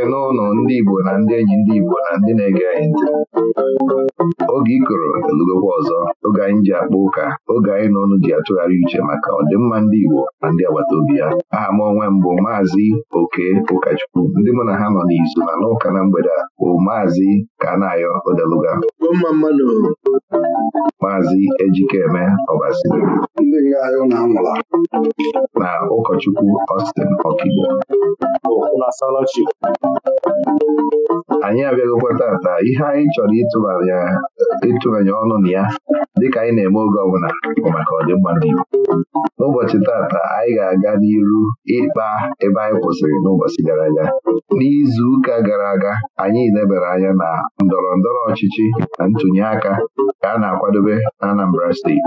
ekele n'ụlọ ndị Igbo na ndị enyi ndị Igbo na ndị na-ege anyị ntị oge ikoro elugokwa ọzọ oge anyị ji akpa ụka oge anyị na ọnụ ji atụgharị uche maka ọdịmma ndị Igbo na ndị agbata obi ya aha m onwe mbụ maazị Oke ụkọchukwu ndị mụ na ha nọ n'izu na n'ụka na mgbede a bụ maazị Kanayo Odeluga mma mmadụ maazị Ejikeme Ọbasiri na ụkọchukwu Austin Okigbo anyị abịaghịkwa tata ihe anyị chọrọ ịtụbanye ọnụ na ya dịka anyị na-eme oge ọbụla bụ maka ọdịmma ndị Igbo n'ụbọchị tata anyị ga-aga n'iru ịkpa ebe anyị kwụsịrị n'ụbọchị gara aga n'izu ụka gara aga anyị lebara anya na ndọrọ ndọrọ ọchịchị na ntụnye aka ka a na-akwadobe na Anambra steeti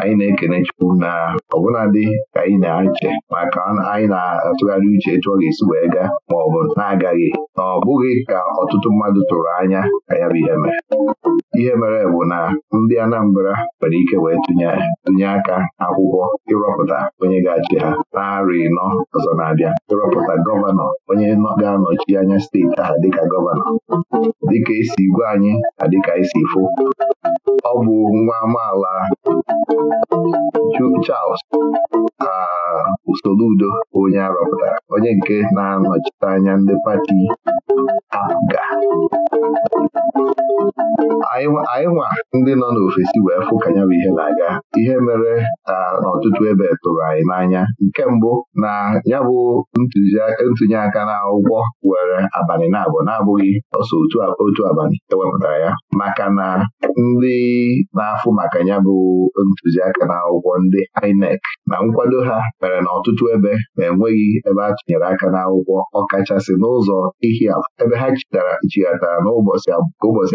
anyị na-ekene Chukwu na ọbụladị ka anyị na-eche maka anyị na-atụgharị uche etu ọ ga-esi wee gaa ma ọ bụ na-agaghị na ọ bụghị ka ọtụtụ mmadụ tụrụ anya ka ya bụ ihe mere ihe mere bụ na ndị Anambra nwere ike wee tụnye aka akwụkwọ ịrọpụta onye ga-achị ha narị nọ ọzọ na-abịa ịrọpụta gọvanọ onye ga-anọchi anya steeti ahụ dịka gọvanọ dịka esi gwa anyị na dịka isi e fụ ọ bụ nwa amaala Charles Soludo onye arọpụtara onye nke na-anọchite anya ndị pati APGA anyị nwa ndị nọ n'ofesi wee fụ ka nya bụ ihe na-aga ihe mere na n'ọtụtụ ebe tụrụ anyị n'anya nke mbụ na ya bụ ntụnye aka na ụgwọ were abalị na na-abụghị ọsọ otu abalị ewepụtara ya maka na ndị na-afụ maka ya bụ ntụziaka na akwụkwọ ndị INEC na nkwado ha mere na ọtụtụ ebe na-enweghị ebe a tụnyere aka n'akwụkwọ ọkachasị n'ụzọ ihi ebe ha chịtara chighatara n'ụbọchị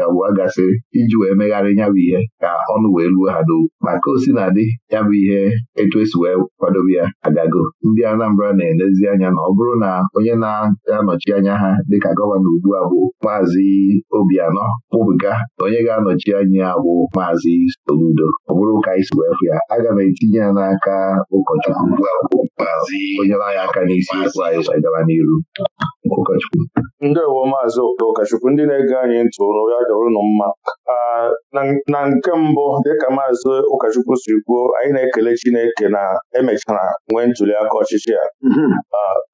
abụọ gasịrị iji wee megharị ya bụ ihe ka ọnụ wee luo ha n'okwu ma ka o na adị ya bụ ihe etu esi wee kwadobe ya agago ndị Anambra na-elezi anya na ọ bụrụ na onye na-anọchi anya ha dịka gọvanọ ugbu a bụ maazị Obianọ kpụbụga na onye ga-anọchi anya ya bụ maazị Oludo ọ bụrụ ụka anyị ya aga m etinye ya n'aka ụkọchukwu onye anyị aka n'isi okwu anyị gaba n'iru ụkọchukwu ndewo maazị ụkọchukwu ndị na-ege anyị ntị ụrụ ya dọrọ ụnụ mma na nke mbụ dịka maazị ụkọchukwu si kwuo anyị na-ekele Chineke na emechara nwee ntuli aka ọchịchị ya mm-hmm.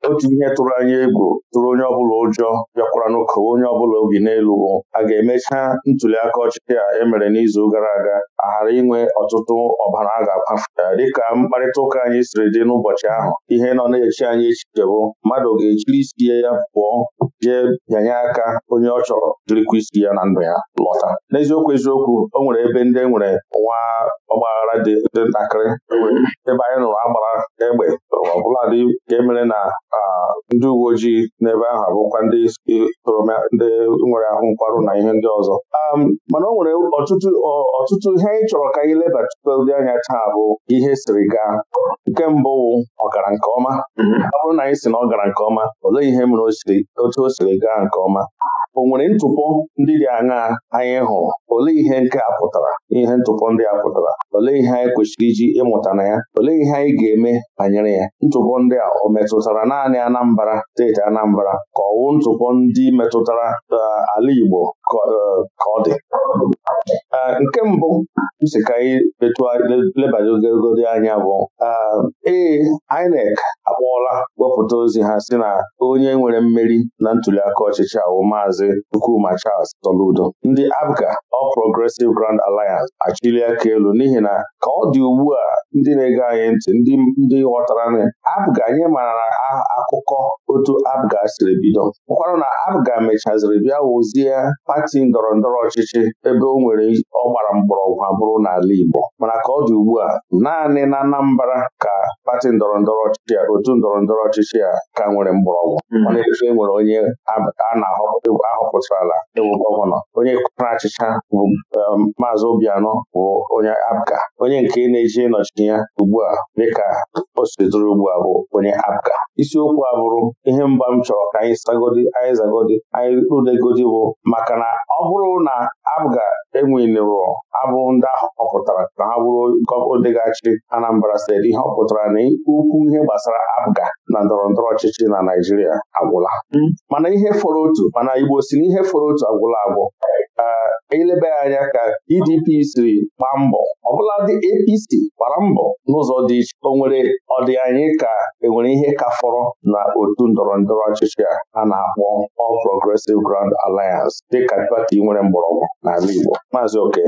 otu ihe tụrụ anyị egwu tụrụ onye ọbụla ụjọ bịakwara n'ụkọwa onye ọbụla obi n'elu a ga-emecha ntuli aka ọchịchị a emere n'izu gara aga A ghara inwe ọtụtụ ọbara a ga-akwafu dịka mkparịta ụka anyị siri dị n'ụbọchị ahụ ihe nọ na-echi anyị echiche bụ mmadụ ga-echiri isi ya pụọ jee bịanye aka onye ọ chọrọ jirikwa isi ya na ndụ ya lọta n'eziokwu eziokwu o nwere ebe ndị e nwere nwa ọgbaghara dị ntakịrị e ebe anyị nụrụ agbara egbe ọbụladị nke mere na ndị uwe ojii n'ebe ahụ abụkwa ndị ndị nwere ahụ nkwarụ na ihe ndị ọzọ um, mana o nwere ọtụtụ ihe anyị chọrọ ka anyị lebatụdị anya taa bụ ihe siri gaa nke mbụ wụ ọgara nke ọma ọ bụrụ na anyị si na ọ gara nke ọma olee ihe mere otu o siri gaa nke ọma o nwere ntụpọ ndị dị aṅaa anyị hụrụ olee ihe nke a pụtara ihe ntụpọ ndị a pụtara olee ihe anyị kwesịrị iji ịmụta na ya olee ihe anyị ga-eme banyere ya ntụpọ ndị a o metụtara naanị Anambra steeti Anambra ka ọwụ ntụpọ ndị metụtara eh, ala Igbo ka eh, ọ dị eh, nke mbụ m ka anyị lebadogogodi anya bụ ee INEC akpọọla wepụta ozi ha si na onye nwere mmeri na ntuliaka ọchịchị ahụ maazị Maazị Nkruma Charles Soludo ndị Abga All Progressive Grand Alliance achili aka elu n'ihi na ka ọ dị ugbu a ndị na-ege anyị ntị ndị ghọtara nri abga anyị mara akụkọ otu Abga siri bido ụkwara na Abga mechaziri bịa wuzie pati ndọrọ ndọrọ ọchịchị ebe o nwere ọ gbara mgbọrọgwụ abụrụ n'ala Igbo mana ka ọ dị ugbu a naanị na Anambra ka pati ndọrọ ndọrọ ọchịchị otu ndọrọ ndọrọ ọchịchị a ka nwere mgbọrọgwụ mana hmm. e nwere onye a na-ahọpụta ahụ pụtara ewu gọvanọ onye kwara achịcha bụ um, maazị Obianọ bụ onye Abga. onye nke na-eji nọchi ya ugbu a dịka o sidoro ugbu a bụ onye Abga. isiokwu a bụrụ ihe mba m chọrọ ka anyị sagodi anyị zagodi anyị rudegodi bụ maka na ọ bụrụ na APGA enwelero abụ ndị ahụ họpụtara na ha bụrụ odegachi ga-achị Anambra steeti ihe ọ pụtara na ukwu ihe gbasara Abga na ndọrọ ndọrọ ọchịchị na Naijiria agwụla hmm? mana ihe fọrọ otu mana Igbo osiri ihe fọrọ otu agwụla agwụ ka e ya anya ka PDP e siri gbaa mbọ ọbụla dị APC gbara mbọ n'ụzọ dị iche o nwere ọdị anyị ka enwere ihe ka fọrọ na otu ndọrọ ndọrọ ọchịchị a na-akpọ All Progressive Grand Alliance dịka pati nwere mgbọrọgwụ n'ala Igbo Maazị Oke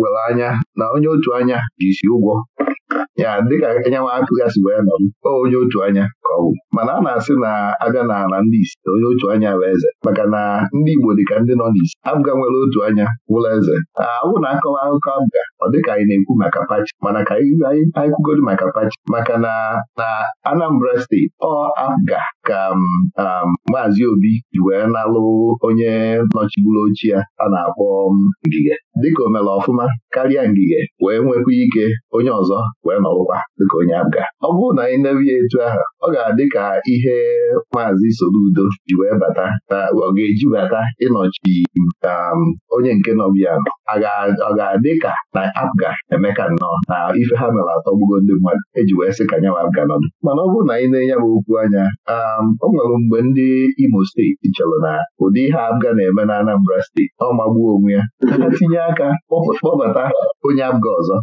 were anya na onye otu anya ji isi ụgwọ ya dịka anyanwụ akụgasị wee nọ m onye otu anya ka ọ bụ mana a na-asị na abịa n'ala ndị isi onye otu anya bụ eze maka na ndị Igbo dịka ndị nọ n'isi abụga nwere otu anya wụla eze awụ na akọwa akụkọ abụga ọ ka anyị na-ekwu maka pachi mana ka anyị dị maka pachi maka na na Anambra steeti ọ abụga ka um, um, Maazị Obi ji wee nalụ onye nọchigburu ochi ya a na-akpọ um, Ngige dịka o ọfụma karịa Ngige wee nwekwa ike onye ọzọ wee nọ n'ọgbụgba dịka onye abga ọ bụrụ na anyị nebie etu ahụ ọ ga-adị ka ihe maazị Soludo ji wee bata na ọ ga-eji bata ịnọchi um, onye nke nọbịa ọ ga-adị ka na abga emeka nnọọ na ife ha mere atọgbugo ndị mmadụ eji wee sị ka nya abga nọdụ mana ọ bụrụ na anyị na-enye bụ okwu anya um, o nwere mgbe ndị Imo steeti chọrọ na ụdị ihe abga na-eme na Anambra steeti ọ magbuo onwe ya tinye aka kpọbata onye abga ọzọ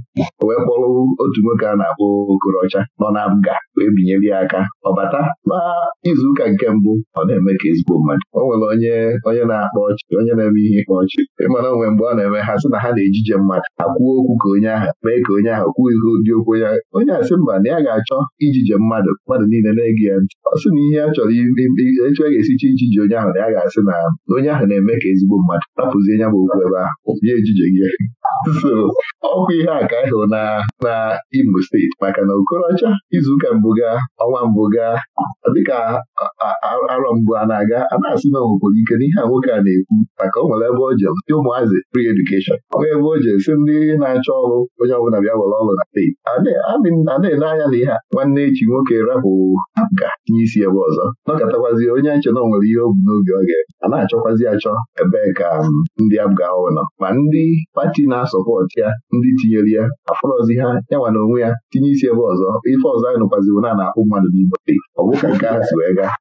wee kpọrọ otu nwoke a na-akpọ okorocha nọ na nga wee binyere ya aka bata na izuụka nke mbụ ọ na-eme ka ezigbo mmadụ o nwere onye onye na-akpa ọchị onye na-eme ihe ịkpa ọchị ịmara onwe mgbe ọ na-eme ha sị na ha na-ejije mmadụ akwuo okwu ka onye ahụ mee ka onye ahụ kwuo ihe dị okwu onye onye asị mba na ya ga-achọ ijije mmadụ mmadụ niile na-ege ya ntị ọ sị na ihe a chọrọ etu a ga-esicha ijije onye ahụ na ya ga-asị na onye ahụ na-eme ka ezigbo mmadụ napụzie nya bụ okwu ebe ahụ bie ejije gị so ihe a ka na na imo Ondo steeti maka na Okorocha izuụka mbụ gaa ọnwa mbụ gaa dịka arọ mbụ a na-aga a na-asị na nwekwara ike n'ihe a nwoke a na-ekwu maka o nwere ebe o je ndị ụmụazị free edukeshọn. nwee ebe o je si ndị na-achọ ọrụ onye ọbụla bịa were ọrụ na steeti a na-ele anya na ihe a nwanne echi nwoke rapụ ga nye isi ebe ọzọ nọkọtakwazie onye nche na o nwere ihe o bu n'obi ọ ga a na-achọkwazi achọ ebee ka um, ndị abụga nọ ma ndị pati na-asọpọtụ ya ndị tinyere ya afọrọzi ha yanwa na onwe ya tinye isi ebe ọzọ ife ọzọ anyị nụkwaziwo na na-akpụ mmadụ n'Igbo ọ bụ ka nke ahụ si wee gaa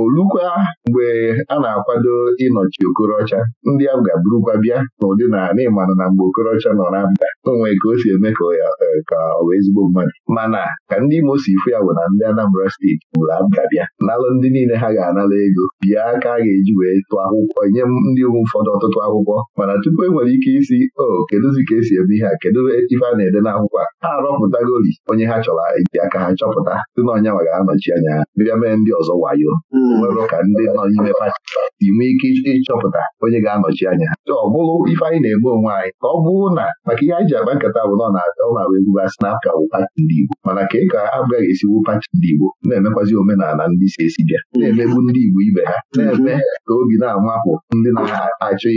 olukwa mgbe a na-akwado ịnọchi okorocha ndị a ga-abụrụkwa bịa n'ụdị na n'ịmanụ na mgbe okorocha nọ na mba onwe ka o si eme ka ọ bụ e, ezigbo mmadụ mana ka ndị Imo si ifu ya bụ na ndị Anambra steeti bụrụ abga bịa nalụ ndị niile ha ga-anara ego bịa ka a ga-eji wee tụọ akwụkwọ nye ndị ụfọdụ ọtụtụ akwụkwọ mana tupu e nwere ike isi o kedụzi ka esi eme ihe a kedu ife a na-ede n'akwụkwọ a ha rọpụtagori onye ha chọrọ eji aka ha chọpụta dị na ọnyanwa ga-anọchi anya bịa mee ndị ọzọ wayo nwere ụka ndị nọ n'ime pati ị nwee ike ịchọpụta onye ga-anọchi anya ha ọ bụrụ ife anyị na-eme onwe anyị ka ọ bụrụ na maka ihe anyị ji akpa nkata bụ na ọ na-agba egwu asị na apka bụ pati ndị Igbo mana ka ị ka agaghị esiwu pati ndị Igbo na-emekwazi omenala ndị si esi bịa na-emegbu ndị Igbo ibe ha na-eme ka obi na-amapụ ndị na-achọ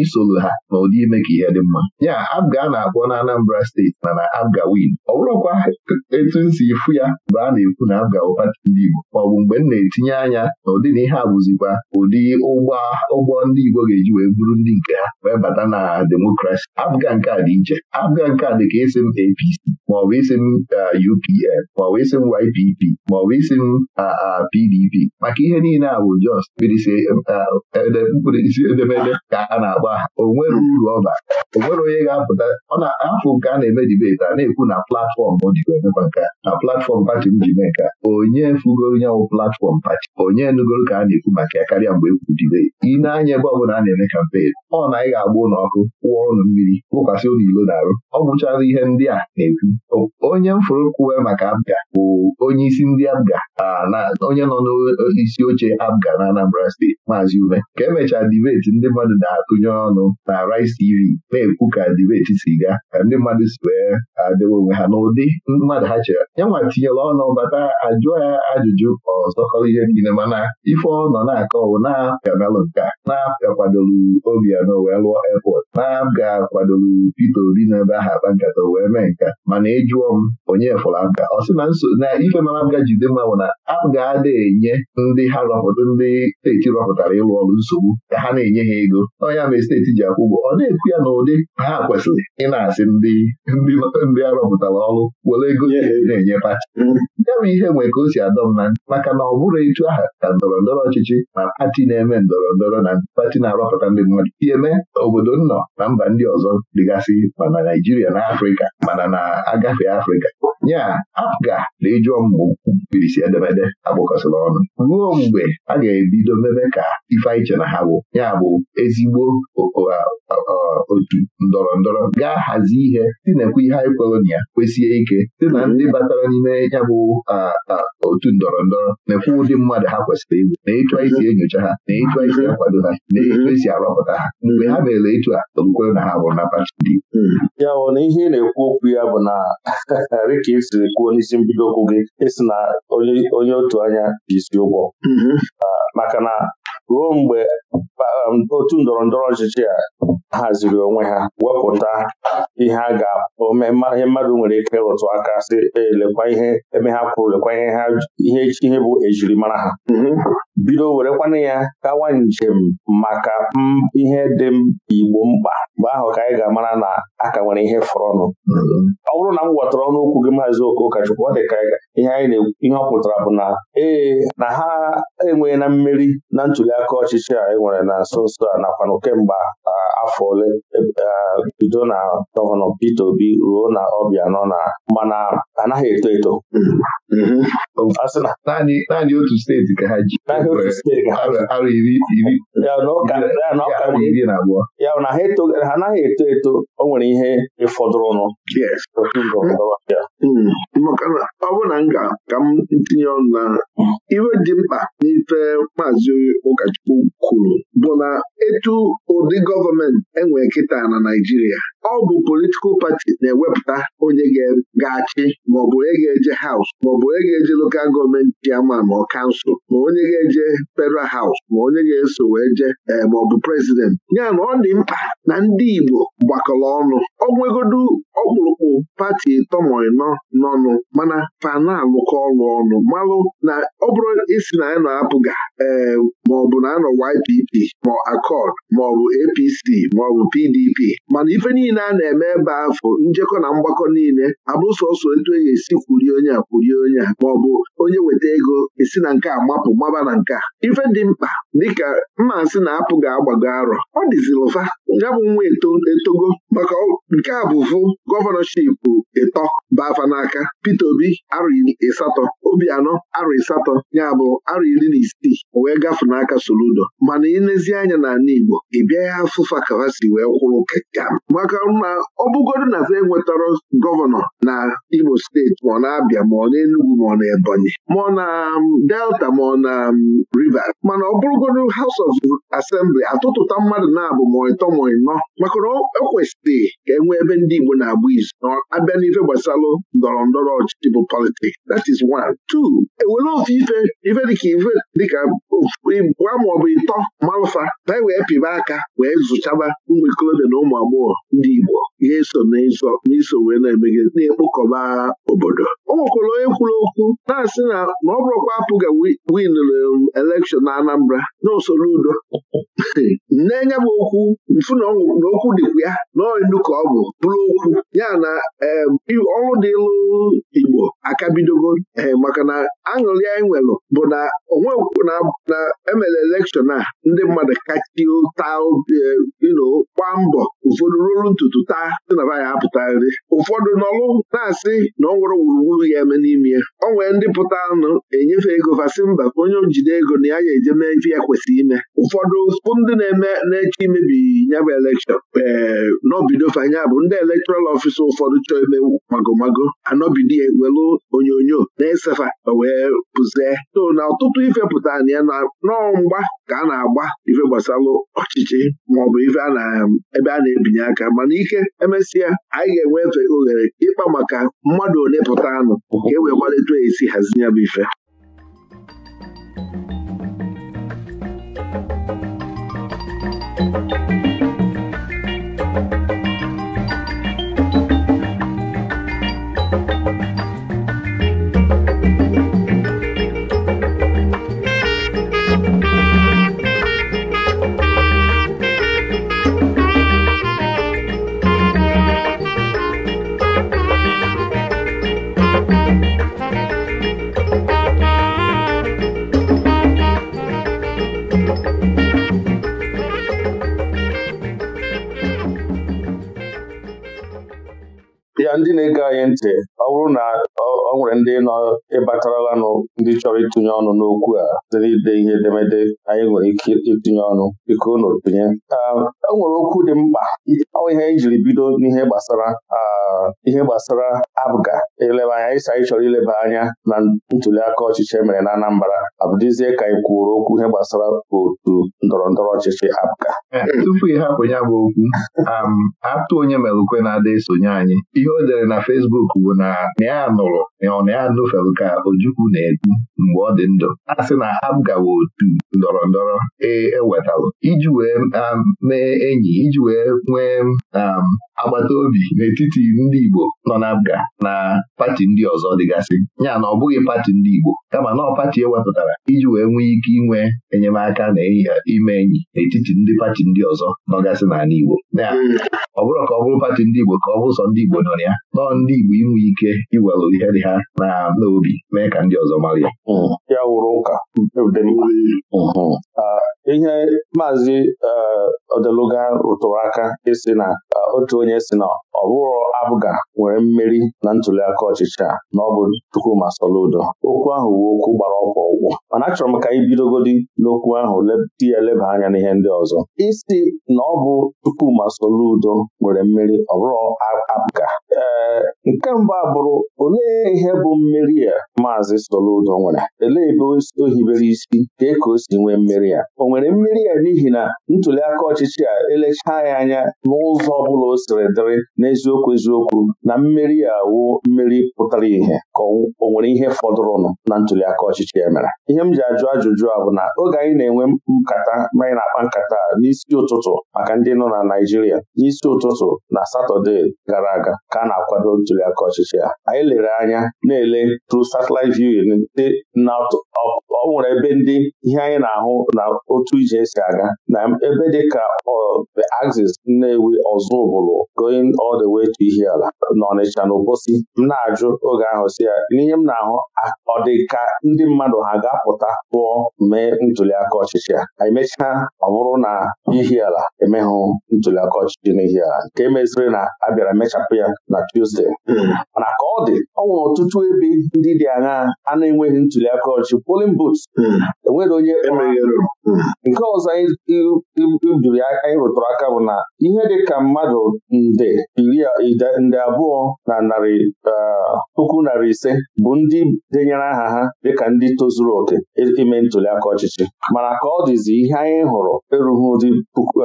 isoro ha na ụdị ime ka ihe dị mma ya abga na-akpọ na Anambra steeti mana abga win ọ bụrụkwa etu nsi ifu ya bụ a na-ekwu na abga bụ ndị Igbo maọbụ mgbe m na-etinye anya na ụdịna ihe a bụzikwa ụdị ụgbọ ndị Igbo ga-eji wee bụrụ ndị nke ha wee bata na demokrasi abụga nke a dị iche abụga nke a dị ka esi m APC maọbụ isi m UPN maọbụ isi m YPP uh, maọbụ isi m PDP uh, uh, maka ihe niile a bụ jos mkpirisi edemede ka a na-agba onwere o uru ọba o onye ga-apụta ọ na-afụ nke a na-eme dibeti a na-ekwu na platfọm ọ jikwa emekwa nke na platfọm pati m ji mee nke onye fugoro nyanwụ platfọm pati onye nugoro ka a na-ekwu maka ya karịa mgbe ekwudibe ị na-anya ebe ọbụla a na-eme kampen ọ na anyị ga-agba ụlọ ọkụ kwụọ ụlọ mmiri wụkwasị ụlọ ilo na-arụ ọ bụchara ihe ndị a na-ekwu onye mfụrụ kwuwe maka abga bụ onye isi ndị abga onye nọ n'isi oche abga na Anambra steeti maazị ume ka emechaa dibeti ndị mmadụ na-atụnye ọnụ na Rice TV na-ekwu ka dibeti si gaa ka ndị mmadụ si wee adịwa onwe ha n'ụdị mmadụ ha chere ya nwa tinyere ọnụ bata ajụọ ya ajụjụ ọzọkọrọ ihe niile mana ife ọ nọ na-akọ bụ na-apịamelụ nka na-apịakwadolu Obiano wee lụọ airport na-ga-akwadolu Peter Obi n'ebe aha akpa nkata wee mee nka mana ịjụọ e m onye fụrụ aka ọ sị na nso na ife mara m jide mma bụ na a ga-ada enye ndị ha rọpụta ndị steeti rọpụtara ịlụ ọrụ nsogbu ka ha na-enye ha ego onye ama steeti ji akwụ ụgwọ ọ na-ekwu ya na ụdị ha kwesịrị ịna asị ndị ndị a rọpụtara ọrụ were ego na-enye pati ya bụ ihe nwere ka o si adọ m na maka na ọ bụrụ etu aha na ndọrọ ndọrọ ọchịchị ma pati na-eme ndọrọ ndọrọ na pati na-arọpụta ndị mmadụ ihe mee obodo nnọ na mba ndị ọzọ dịgasị ma na Naijiria na Afrịka mana na agafe Afrịka nya apụga na ịjụọ mgbe mkpirisi edemede agbakọsịla ọnụ ruo mgbe a ga-ebido mebe ka ife anyị na ha bụ ya bụ ezigbo otu ndọrọ ndọrọ gaa hazie ihe tinekwa ihe anyị kwere na ya kwesie ike sị na ndị batara n'ime ya bụ otu ndọrọ ndọrọ nekwa ụdị mmadụ ha kwesịrị iwu na etu anyị si enyocha ha na etu anyị si akwado ha na etu esi arọpụta ha mgbe ha mere etu a okwukwere na ha bụrụ na pati ndị ya bụ na ihe na-ekwu okwu ya bụ na rịka ị siri kwuo n'isi mbido okwu gị ịsị na onye otu anya ji isi ụgwọ mm-hmm. ah, maka na ruo mgbe um, otu ndọrọ ndọrọ ọchịchị a haziri onwe ha wepụta ihe a ga-ome ihe mmadụ nwere ike rụtụ aka sị elekwa ihe eme ha kwuru lekwa ihe bụ ejirimara ha Mm-hmm. bido werekwana ya kawa njem maka mm, ihe dị igbo mkpa mgbe ahụ ka anyị ga-amara na aka nwere ihe fọrọ ọnụ mm-hmm. ọ bụrụ na m gwọtara ọnụ gị maazị Okochukwu ọ dị ka ihe anyị ihe ọ pụtara bụ na ee na ha enweghị na mmeri na ntụliaka ọchịchị a e nwere na nso nso a nakwanụ kemgbe afọ ole e, bido na gọvanọ Peter Obi ruo na ọbịa nọ na mana anaghị eto eto mm-hmm. Mm-hmm. naanị otu steeti ka ha ji ya na ha anaghị eto eto o nwere ihe ịfọdụrụnụ Hmm. na ọ bụ na m ga ka m tinye ọnụ na ihe dị mkpa n'ife maazị ụkọchukwu kwuru bụ na etu ụdị gọọmenti enwe kịta na Naịjirịa ọ bụ politikal pati na-ewepụta onye ga-achị maọbụ onye ga-eje haus maọbụ onye ga-eje lokal gọọmenti ama ma ọ kansụl ma onye ga-eje federal haus ma onye ga-eso wee je eh, maọbụ prezidenti ya na ọ dị mkpa na ndị Igbo gbakọrọ ọnụ ọgwụegodu ọkpụrụkpụ pati tọmọịnọ nọnụ mana fa na ọrụ ọnụ malụ na ọ bụrụ isi na ya na-apụga ee eh, maọbụ na anọ YPP ma akọd maọbụ APC maọbụ PDP mana ife niile a na-eme ebe afọ njekọ na mgbakọ niile abụ sọsọ etu e ga-esi kwurie onye a kwurie onye a maọbụ onye weta ego esi na nke a mapụ maba na nke a ife dị mkpa dịka mma asị na-apụ ga-agbago arọ ọ dịzilụfa ya bụ nwa etogo maka nke a bụ vụ gọvanọship bafa fa n'aka Peter Obi arụ ịsatọ obi anọ arụ ịsatọ ya bụ arụ iri na isii wee gafe n'aka Soludo mana ilezi anya n'ala Igbo ị bịaghị afụfa kawasi wee kwụrụ keka maka na ọ bụgodu na enwetara gọvanọ na Imo steeti ma ọ na-abịa ma ọ na-Enugu ma ọ na Ebonyi ma ọ na Delta ma ọ na um, Rivers mana ọ bụrụgodu House of Assembly atụtụta mmadụ na-abụ ma ịtọ ma ịnọ maka na ekwesịrị ka e nwee ebe ndị Igbo na-agba izu na abịa n'ife gbasalụ ndọrọ ndọrọ ọchịchị bụ politiks that is one two ewere ofe ife ife dịka ife dịka gwa maọbụ ịtọ malụfa na e wee pịba aka wee zụchaba ụmụ ikolobịa na ụmụ agbọghọ ndị Igbo ihe so n'iso wee na-emegide na-ekpokọba obodo o nwekwara onye kwuru okwu na-asị na na ọ bụrụkwa apụga winụrụ um, elekshọn na Anambra na usoro udo nne nya okwu mfu na okwu dịkwa ya na ọnụ ka ọ bụ bụrụ okwu ya na um, ọrụ dịlụ Igbo akabidogo ee eh, maka na aṅụrị anyị nwelụ bụ na onwe na emere elekshọn a ndị mmadụ kachitaa ino eh, gbaa mbọ ụfọdụ ruru ntutu taa dị na baya apụta nri ụfọdụ nọlụ na-asị na ọ nwere gburugburu ya eme n'ime ya o nwere ndị pụta enyefe ego fasị mba onye njide ego na ya ya eje mee ife ya kwesịrị ime ụfọdụ pụ ndị na-eme na-eche imebi nyabụ bụ elekshọn ee eh, n'obido fanya bụ ndị elektoral ọfịsa ụfọdụ chọọ ime magomago anọbido ya welu onyonyo na-esefa wee pụzie so na ọtụtụ ife pụta na ya nọọ mgba ka a na-agba ife gbasalụ ọchịchị maọbụ ife a na um, ebe a na-ebinye aka mana ike emesịa anyị ga-enwefe oghere ịkpa maka mmadụ ole pụta anụ ka e wee gbalịtụ esi hazi ya bụ ife ịtụnye ọnụ n'okwu a site ide ihe edemede anyị nwere ike ịtụnye ọnụ biko unu tụnye e nwere okwu dị mkpa ihe anyị jiri bido n'ihe gbasara ihe gbasara abụga eleba anya ịsa anyị chọrọ ileba anya na ntuli aka ọchịchị emere na Anambra abụdịzie ka anyị kwuru okwu ihe gbasara otu ndọrọ ndọrọ ọchịchị abụga e, tupu ị hapụ ya bụ okwu atụ onye mere ukwe na-ada esonye anyị ihe o dere na Fesbuk bụ na na ya nụrụ ọ na ya ojukwu na-ekwu hmm. mgbe ọ dị ndụ a sị na ha gawa otu ndọrọ ndọrọ ewetalụ e iji wee mee enyi iji wee nwee um, agbata obi n'etiti ndị Igbo nọ na Abga na pati ndị ọzọ dịgasị ya na ọ bụghị pati ndị Igbo kama na pati pati e ewepụtara iji wee nwee ike inwe enyemaka na ime enyi n'etiti ndị pati ndị ọzọ nọgasị n'ala Igbo ọ bụrụ ka ọ bụrụ pati ndị Igbo ka ọ bụ sọ ndị Igbo nọ ya nọọ ndị Igbo inwe ike iwelụ ihe dị ha na n'obi mee ka ndị ọzọ mara ya hmm. ya wụrụ ụka ah, ihe maazị ah, odeluga rụtụrụ aka ịsị na ah, otu onye si na ọbụrụ abụga nwere mmeri na ntuliaka ọchịchị a na ọ bụ Chukwuma Soludo okwu ahụ wu okwu gbara ọkwa ọgwụ. mana achọrọ m ka anyị bidogodi n'okwu ahụ di ya eleba anya n'ihe ndị ọzọ isi na ọ bụ Soludo nwere mmeri ọbụrụ bụrụ abụga ee eh, nke mbụ abụrụ olee ihe bụ mmeri a maazị Soludo nwere elee ebe o hibere isi dee ka o si nwee mmeri ya o nwere mmeri ya n'ihi na ntuliaka ọchịchị a elechaa ya anya n'ụzọ ọ bụla o siri dịrị n'eziokwu eziokwu na mmeri ya awụ mmeri pụtara ihe ka o nwere ihe fọdụrụnụ na ntuliaka ọchịchị ya mere ihe m ji ajụ ajụjụ a bụ na oge anyị na-enwe nkata manyị anyị na-akpa nkata n'isi ụtụtụ maka ndị nọ na Naịjirịa n'isi ụtụtụ na Satọde gara aga ka a na-akwado ntuliaka ọchịchị ya anyị lere anya na-ele tru satellite viewing ndị ọ nwere ebe ndị ihe anyị na-ahụ na otu ije si aga na ebe dị ka the axis Nnewi Ọzụbụlụ going all the way to ihe ala na Obosi m na-ajụ oge ahụ si ya n'ihe m na-ahụ ọ dị ka ndị mmadụ ha ga-apụta pụọ mee ntuliaka ọchịchị a emechaa ọ bụrụ na ala emeghụ ntuliaka ọchịchị na ala nke meziri na abịara emechapụ mechapụ ya na tuzde hmm. mana ka ọ dị ọ nwere ọtụtụ ebe ndị dị anya aṅaa a na-enweghị ntuli aka ọchị polin boots hmm. enwere onye hmm. nke ọzọ ibiri anyị rụtụrụ aka bụ na ihe dị ka mmadụ nde nde abụọ na narị eh, puku narị ise bụ ndị denyere aha ha dịka ndị tozuru oke ime ntuli aka ọchịchị mana ka ọ dịzi ihe anyị hụrụ erughị ụdị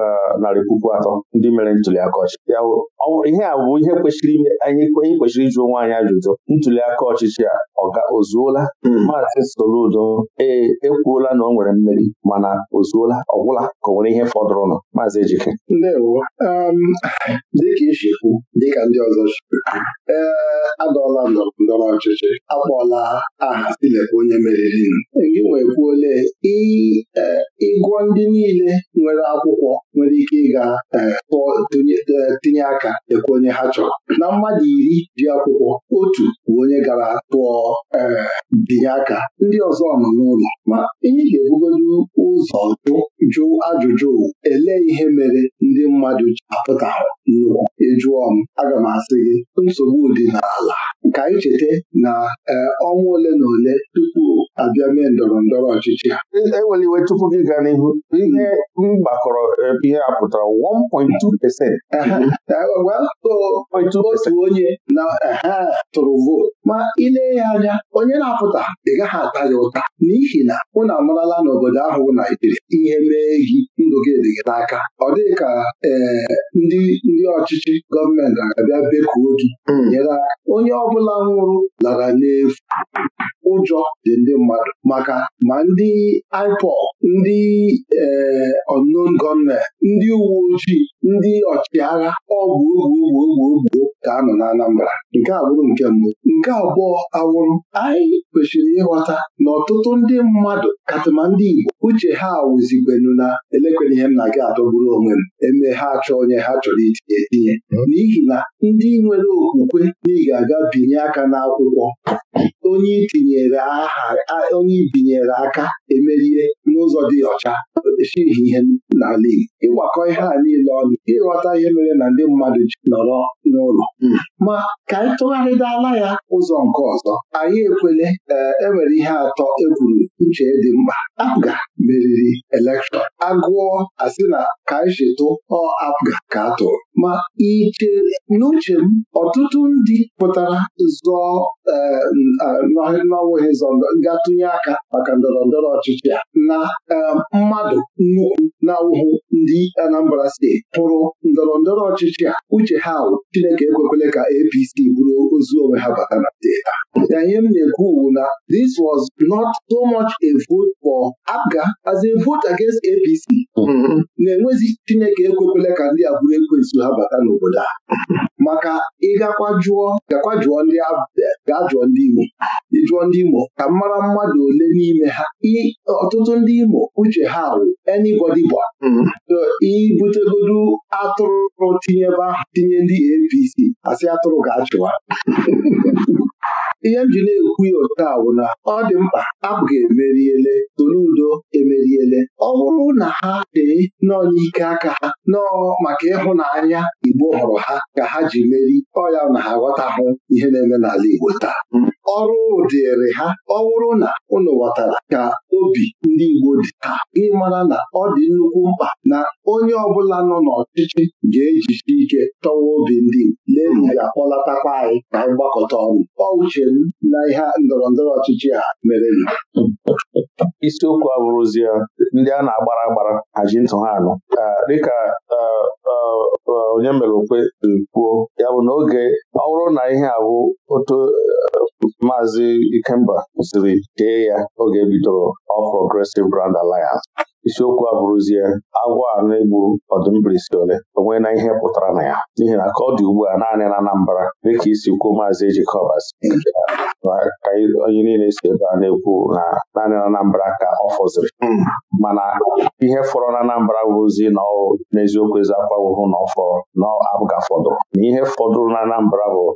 eh, narị puku atọ ndị mere ntuli aka ọchịchị ihe a bụ ihe kwesịrị anyị kwesịrị ịjụ onwe anyị ajụjụ ntuli aka ọchịchị a Ozuola, zuola hmm. maazị Soludo ee ekwuola na ọ nwere mmeri mana ozuola zuola ọgwụla ka ọ nwere ihe fọdụrụnụ maazị Ejike ndewo um, dịka isi kwu dịka ndị ọzọ ee adọọla ndọrọ ndọrọ ọchịchị akpọọla aha silekwa onye meriri e, gị wee kwuole e, ịgụọ ndị niile nwere akwụkwọ nwere ike ịga e, e, tinye aka ekwe onye ha chọrọ na mmadụ iri dị akwụkwọ otu bụ onye gara tụọ e, binye aka ndị ọzọ nọ n'ụlọ ma ihe ga-ebugodu ụzọ jụ ajụjụ ele ihe mere ndị mmadụ ji apụtahụ nnukwu jụọ m aga m asị gị nsogbu dị n'ala ka anyị cheta na e, ọnwa ole na ole tupu abịa mee ndọrọ ndọrọ ọchịchị ha enwere e iwe tupu gị gaa n'ihu ihe mgbakọrọ e, ihe a pụtara 1.2 otu onye na tụrụ vootu ma ilee ya anya onye na-apụta ị gaghị ata ya ụta n'ihi na unu amarala n'obodo ahụ Naijiria ihe mee gị ndụ gị dịghị n'aka ọ dịghị ka ndị ndị ọchịchị gọọmenti na-abịa bekuo gị hmm. nyere aka onye ọbụla nwụrụ lara n'efu ụjọ dị ndị mmadụ maka ma ndị IPOB ndị eh, unknown gunmen ndị uwe ojii ndị ọchịagha ọgwụ ogwu ogwu ogwu ka a nọ na Anambra nke a nke mbụ nke abụọ awụrụ anyị kwesịrị ịghọta na ọtụtụ ndị mmadụ katịma ndị Igbo uche ha awụzikwenu na elekwere ihe m na-aga adọgburu onwe m eme ha achọ onye ha chọrọ itinye etinye hmm. n'ihi na ndị nwere okwukwe na ị ga-aga binye aka n'akwụkwọ onye itinyere aha onye ibinyere aka emerie n'ụzọ n'ụzọ dị ọcha eshighị ihe n'ala Igbo ịgbakọ ihe a niile ọnụ ịghọta ihe mere na ndị mmadụ ji nọrọ n'ụlọ hmm. ma ka anyị tụgharịdala ya ụzọ nke ọzọ anyị ekwele enwere eh, e ihe atọ egwuru nche uche dị mkpa Apga meriri elekshọn agụọ asị na ka anyị chetụ ọ Apga ka atụrụ. ma iche n'uche m ọtụtụ ndị pụtara zọọ ee n'ọwụghị zọ aka maka ndọrọ ndọrọ ọchịchị a na Um, mmadụ nnukwu na ndị Anambra steeti hụrụ ndọrọ ndọrọ ọchịchị uche ha wụ Chineke ekwekwele ka APC bụrụ ozu onwe ha bata na steeti a ihe m na-ekwu wu this was not so much a vote for APGA as a vote against APC mm-hmm. na-enwezi Chineke ekwekwele ka ndị a bụrụ ekwensu ha bata n'obodo a maka ịgakwa jụọ jụọ ndị jụọ ndị Imo ka mara mmadụ ole n'ime ha ọtụtụ ndị Imo uche ha wụ anybody gba ibutegodu mm-hmm. atụrụ tinyebe tinye ndị APC asị atụrụ ga-achụwa ihe m ji na-ekwu ya otu a bụ na ọ dị mkpa abụghị emeriele tolu udo emeriele ọ bụrụ na ha dị nọọ n'ike aka ha nọọ maka ịhụnanya Igbo hụrụ ha ka ha ji meri ọ ya na ha ghọtahụ ihe na-eme n'ala Igbo taa ọrụ dịrị ha ọ bụrụ na ụnụ ghọtara ka obi ndị Igbo dị taa ị mara na ọ dị nnukwu mkpa na onye ọbụla nọ n'ọchịchị ga ejiji ike tọwa obi ndị Igbo ga-akpọlatakwa anyị ka anyị gbakọta ọnụ ọ uche m na ihe ndọrọ ndọrọ ọchịchị a mere isiokwu abụrụzie ndị a na-agbara agbara haji ntụ ha anụ dịka e, e, e, onye mere okwe kwuo ya bụ n'oge ọ bụrụ na ihe abụ otu Maazị Ikemba kwụsịrị dee ya oge ebidoro All Progressive Brand Alliance isiokwu a bụrụzie agwọ a na-egbu ọdụmbirisi ole onwe na ihe pụtara na ya n'ihi na ka ọ dị ugbu a naanị na Anambra dịka isi kwuo Maazị Ejikobas ka onye niile si ebe a na-ekwu na naanị na Anambra ka ọ fọziri hmm. mana ihe fọrọ na Anambra bụzi na n'eziokwu ezi akwa wụhụ na ọ na afọdụ na ihe fọdụrụ na Anambra bụ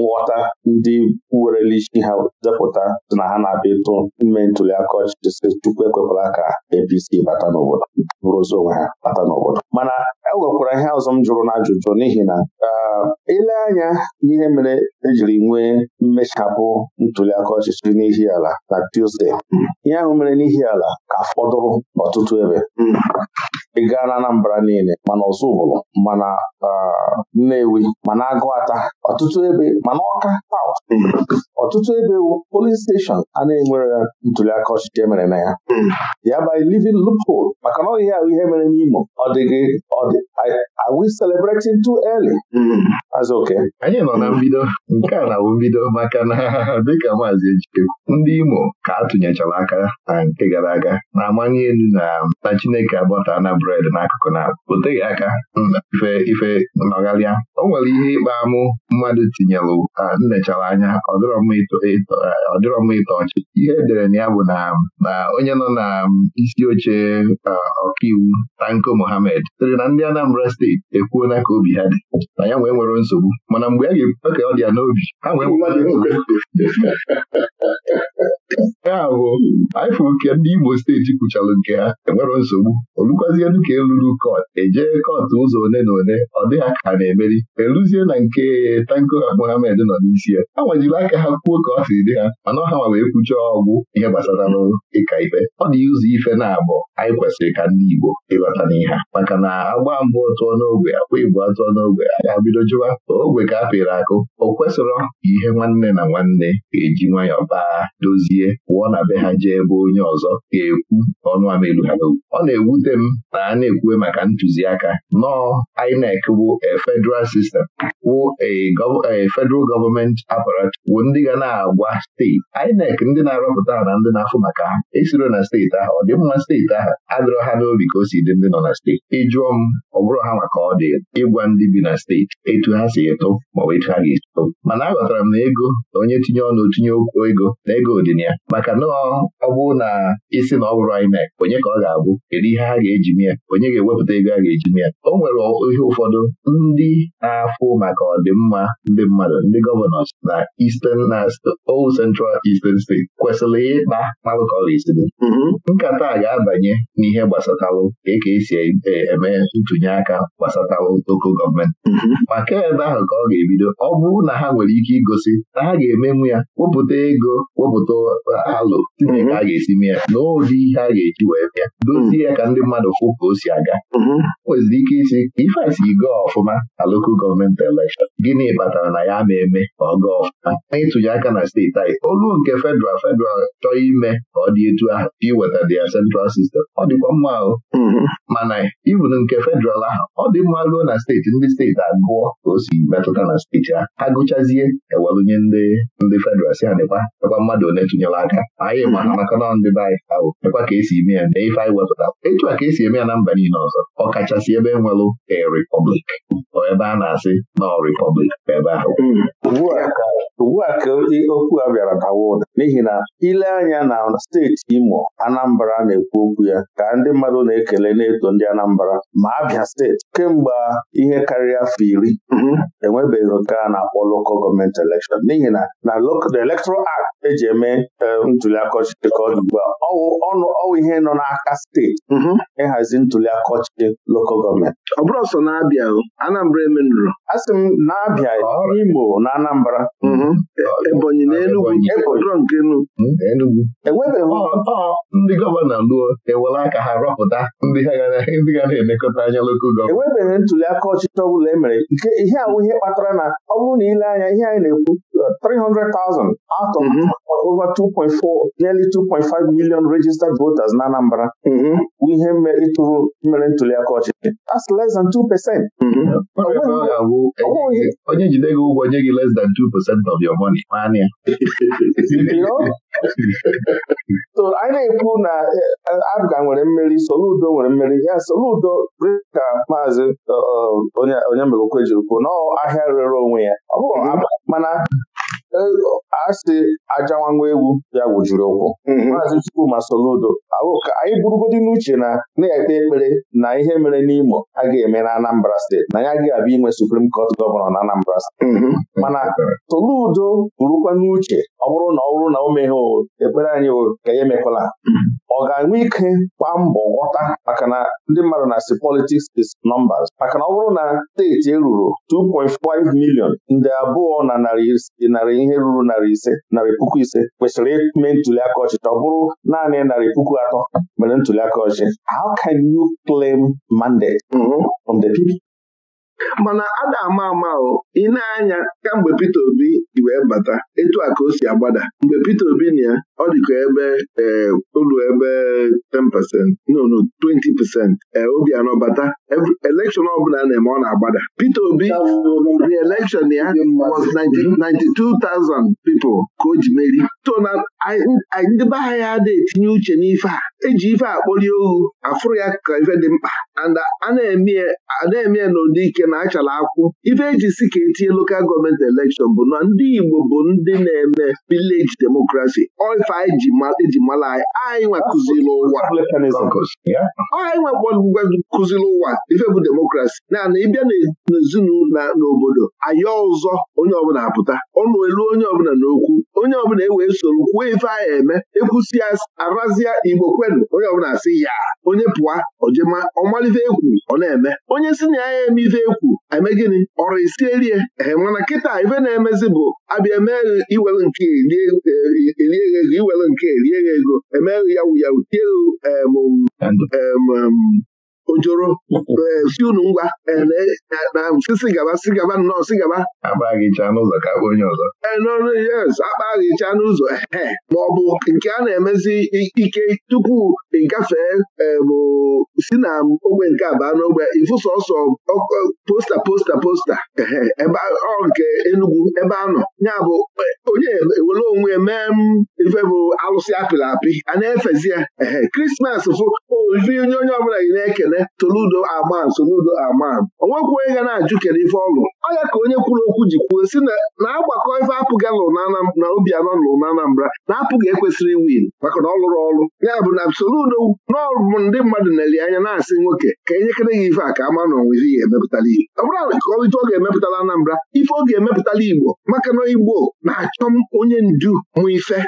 nghọta ndị werele isi ha depụta dị na ha na-abịa ịtụ ime ntuli aka ọchịchị si Chukwu ekwekwala ka APC bata n'obodo bụrụzi onwe ha bata n'obodo mana e nwekwara ihe ọzọ m jụrụ na ajụjụ n'ihi na um, ile anya n'ihe mere ejiri nwee mmechapụ ntuli aka ọchịchị n'ihi ala na Tuzdee hmm, ihe ahụ mere n'ihi ala ka fọdụrụ n'ọtụtụ ebe hmm. ị gaa na Anambra niile mana ọzụbụlụ mana ah, Nnewi mana ata. ọtụtụ ebe mana Ọka ọtụtụ ebe polin steshọn a na-enwere ntuliaka ọchịchị emere na ya ya by living loophole maka na ọhịa ahụ ihe mere n'Imo ọ dịghị ọ dị are we celebrating too early? Azụ Anyị nọ na mbido nke a na awụ mbido maka na dịka maazị Ejike ndị Imo ka atụnyechara aka na nke gara aga na-amanye elu na na Chineke agbata na bred n'akụkụ na o teghị aka ife ife nọgharịa o nwere ihe ịkpa amụ mmadụ tinyelụ nnechara anya ọ dịrọ mma ịtọ ọchị ihe edere na ya bụ na onye nọ na isi oche ọkaiwu Tanko Mohammed sịrị na ndị Anambra steeti ekwuona ka obi ha dị na ya nwee nwere nsogbu mana mgbe a ga-ebuta ka ọ dị ya n'obi ha nwee ya bụ ifụ nke ndị Igbo steeti kwuchara nke ha enwere nsogbu olukwazie edu ka eluru kọt ejee kot ụzọ one na one ọ dịghị aka ha na-emeri eruzie na nke tanko Mohammed nọ n'isi ya ha nwajiri aka ha kwuo ka ọ siri dị ha mana ọha ma wee kwuchie ọgwụ ihe gbasara ịka ife ọ dị ụzọ ife na-abụ anyị kwesịrị ka ndị Igbo ịbata n'ihe maka na agba mbụ tụọ n'ogwe akwa ibu atụọ n'ogwe a ga-abido jụwa ogwe ka a pịrị akụ o kwesịrọ ihe nwanne na nwanne ga-eji nwayọ baa dozie pụọ na be ha jee ebe onye ọzọ ga-ekwu ọnụ ha ọ na-ewute m na a na-ekwu maka ntụziaka nọọ INEC bụ a federal system wụ a federal government wụ ndị ga na-agwa steeti INEC ndị na-arọpụta na ndị na-afụ maka ha esiro na steeti ahụ ọ dị mma steeti ahụ adịrọ ha n'obi ka o si dị ndị nọ na steeti ịjụọ m ọ bụrụ ha maka ọ dị ịgwa ndị bi na steeti etu ha si eto maọbụ etu ha ga-esi eto mana aghọtara m na ego na onye tinye ọnụ tinye okwu ego na ego dị ya maka nọọ ọ bụrụ na isi na ọ bụrụ INEC onye ka ọ ga-abụ kedu ihe ha ga-eji mee onye ga-ewepụta ego a ga-eji ya o nwere ihe ụfọdụ ndị na-afụ maka ọdịmma ndị mmadụ ndị gọvanọs na Eastern na Old Central Eastern State kwesịrị ịkpa malụkọrisiri mm-hmm. nkata a ga-abanye n'ihe gbasatalụ ka e ka esi e, e, eme ntụnye aka gbasatalụ oko gọọmenti mm-hmm. maka ebe ahụ ka ọ ga-ebido ọ bụrụ na ha nwere ike igosi na ha ga-emenwu ya wepụta ego wepụta alụ tinye ka mm-hmm. a ga-esi mee ya na ụdị ihe a ga-eji wee bịa dozie ya ka ndị mmadụ fụpụ ka o si aga mhm. o ike isi ife asi go ọfụma na lokal gọọmenti elekshọn gịnị kpatara na ya ma eme ka ọ gaa ọfụma na ịtụnye aka na steeti anyị olu nke federal federal chọọ ime ka ọ dị etu ahụ iweta dị ya central sistem ọ dịkwa mma ahụ. Mhm. mana ibun nke fedral ahụ ọ dị mma ruo na steeti ndị steeti agụọ ka o si metụta na steeti ha ha gụchazie ewelụnye ndị ndị federal si ha dịkwa mmadụ ole tụnyere aka anyị ma ha maka na ndị be anyị ahụ ka esi eme ya na ife anyị wepụta etu a ka esi eme ya na mba niile ọzọ ọkachasị ebe enwelụ a republic ebe a na-asị na ebe ahụ hmm. ugbu a ka okwu a bịara bawa ụda n'ihi na ile anya na steeti Imo Anambra na-ekwu okwu ya ka ndị mmadụ na-ekele na-eto ndị Anambra ma Abịa steeti kemgbe ihe karịa afọ iri mhm. enwebeghị nke a na-akpọ Gọọmenti n'ihi na na the Electoral Act eji eme eh, ntuli ọchịchị ka ọ dị ugbu a ọwụ ihe nọ n'aka steeti mhm. ịhazi Ntuli aka ọchịchị lokal gọọmenti ọ bụrụ ọsọ na-abịa Anambra emenụrụ a sị m na-abịa Imo na Anambra mhm. Ebonyi na enugwu hmm, enwebeghị ndị gọvanọ luo ewere aka ha rọpụta ndị ga na-elekọta anya lokal gọọmenti enwebeghị ntuliaka ọchịchị ọ bụla e nke ihe ahụ ihe kpatara na ọ bụrụ na ile anya ihe anyị na-ekwu 300,000 out of mm -hmm. over 2.4 nearly 2.5 million registered voters na Anambra bụ ihe ịtụrụ mere ntuliaka ọchịchị that's less than 2 percent onye jide gị ụgwọ nye gị less than 2 percent of your money na-ekwu na eh, Abga nwere mmeri Soludo nwere mmeri ya Soludo ka maazị eh, eh, onye megokwe jiri kwuo ahịa rere onwe ya ọ mm-hmm. mana asị ajanwanwa egwu ya wujuru ụkwụ mhm. maazị Chukwuma Soludo anyị burugodi n'uche na na-ekpe ekpere na ihe mere n'Imo a ga-eme na Anambra steeti na ya ga-abịa inwe Supreme Court gọvanọ na Anambra steeti mhm. mana Soludo burukwa n'uche ọ bụrụ na ọ bụrụ na o meghe ekpere anyị ka ya emekwala. Mhm. ọ ga-enwe ike gba mbọ ghọta maka na ndị mmadụ na-asị politics is nọmbas maka na ọ bụrụ na steeti eruru 2.5 milion nde abụọ na narị ihe ruru narị ise narị puku ise kwesịrị ime ntuli aka ọchịchị ọ bụrụ naanị narị puku atọ mere ntuli aka ọchịchị how can you claim mandate from the people? mana a na-ama ama o ị na-anya kamgbe Peter Obi ji wee bata etu a ka o si agbada mgbe Peter Obi na ya ọ dịka ebe eh, ụlọ percent no no 20 percent eh, Obianọ bata elekshọn ọbụla a na-eme ọ na-agbada Peter Obi re-election ya was 92,000 mm-hmm. people ka o ji meri ndị be ha ya adịghị etinye uche n'ife a eji ife akpọlie ohu afụrụ ya ka ife dị mkpa anda a eme ya n'ụdị ike na achara akwụ ife eji si ka etinye lokal gọọmenti elekshọn bụ na ndị Igbo bụ ndị na-eme vileji demokrasi oife anyị eji e mala anyị anyị nwakụziri ụwa libertarianism enwekwa inwekwa kụziri ụwa ife bụ demokrasi naanị ịbịa n'ezinụlọ n'obodo ayọ ọzọ onye ọbụla apụta ọnụ elu onye ọbụla n'okwu onye ọbụla ewee soro kwuo ife a eme ekwusi arazia igbo kwedu, onye ọbụla asị ya onye pụa ojema ọmalife ekwu ọ na-eme onye si na ya eme ife ekwu eme gịnị ọrụ isielie ee mana kịta ife na-emezi bụ abịa emee iwere nke erie ego e, iwere nke erie ego emeghị ya wuya tie e, emm emm ojoro eh, si unu ngwa eh, na mfisi eh, gaba si gaba nnọọ si gaba n'ụzọ ka akpa onye ọzọ yes n'ụzọ ma ọ bụ nke a na-emezi ike tupu ịgafee bụ si na ogbe nke abaa n'ogbe ịfụso sọsọ posta posta posta ọ nke Enugwu ebe a nọ ya bụ onye ewere onwe mee m mm, ife bụ alụsị apịrị apị a na-efezi ya ehe krismas fụ ife onye onye ọbụla gị na-ekene Soludo aman Soludo aman onwekwu onye ga na-ajụ kere ife ọlụ ọ ya ka onye kwuru okwu ji kwuo si na agbakọ ife apụghị alụ na Obianọ lụrụ na Anambra na-apụghị ekwesịrị win maka na ọ lụrụ ọlụ ya bụ na Soludo n'ọbụ ndị mmadụ na-eli anya na-asị nwoke ka enyekere gị ife a ka ama na onwezi ya emepụtala Igbo ọ bụrụ ka ọ ọ ga-emepụtala Anambra ife ọ ga-emepụtala Igbo maka na Igbo na-achọ onye ndu mụ ife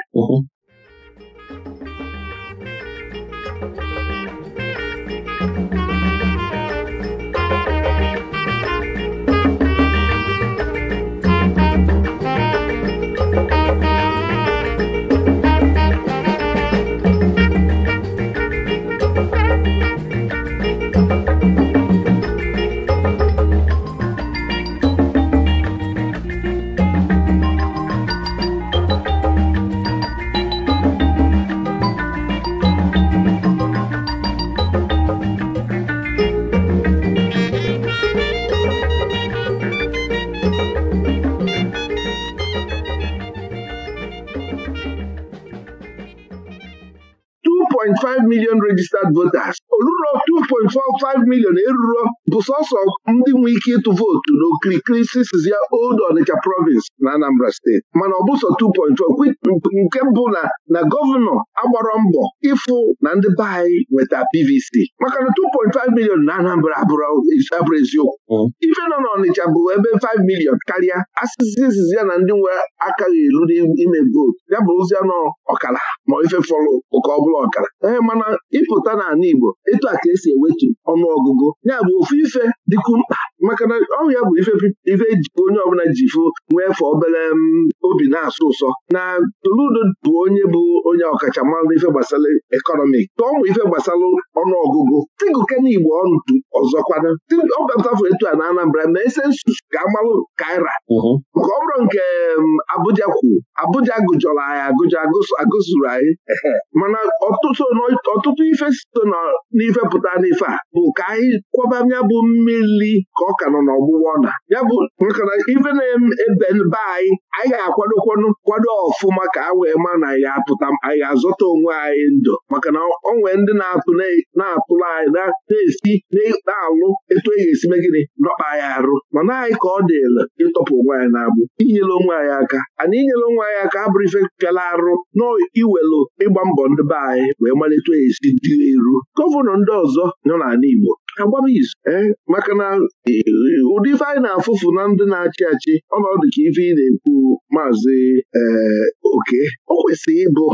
million registered voters oluro 2.45 million eruro bụ sọsọ ndị nwee ike ịtụ vootu n'okirikiri sisiz ya Old onicha province na Anambra steeti mana ọ bụ sọ nke mbụ na na gọvanọ agbara mbọ ịfụ na ndị be anyị nweta PVC maka na 2.5 milion na Anambra abụrụ eziokwu mm. ife nọ n'Ọnịcha bụ ebe 5 milion karịa asịsisiz ya na ndị nwe akaghị elu n'ime vootu ya bụ ozi anọ ọkara ma ife fọrọ ụka ọbụla ọkara ee mana ịpụta n'ala Igbo etu a ka esi ewetu ọnụọgụgụ ya bụ ofu ife dịkwa mkpa maka na ọ ya bụ ife onye ọbụla ji fụ nwee fọ obere mm, obi na-asụ ụsọ na Toludo bụ onye bụ onye ọkachamara ife gbasara ekọnọmi. tụọ mụ ife gbasara ọnụọgụgụ tigụkena igbo ọnụ ọzọkwana ọ baptafụ etu a na Anambra ma ese nsusu ga-amalụ kaira mhm. Nke ọ bụrụ nke mm, Abuja kwuru Abuja gụjọrọ anyị agụjọ agụsụrụ anyị mana ọtụtụ ife so n'ife pụta n'ife a bụ ka anyị kwọbanya bụ mmiri ka ọ ka nọ n'ọgbụgbọ na ya bụ maka na ife na-ebe be anyị anyị ga-akwadokwanụ kwado ọfụma ka a wee ma na ya apụta anyị ga-azọta onwe anyị ndụ maka na nwee ndị na-atụ na-atụrụ anyị na-esi na-alụ etu e ga-esi megide nọkpa anyị arụ mana anyị ka ọ dịla ịtọpụ onwe anyị na-abụ inyele onwe anyị aka ana inyele onwe anyị aka abụrụ ife fela arụ na iwelu ịgba mbọ ndị be anyị wee malite esi dị eru gọvanọ ndị ọzọ nọ n'ala Igbo agbaba izu e, maka na e, ụdị ife anyị na-afụfụ na ndị na-achị achị ọnọdụ ka ife ị na-ekwu maazị e, oke o kwesịrị ịbụ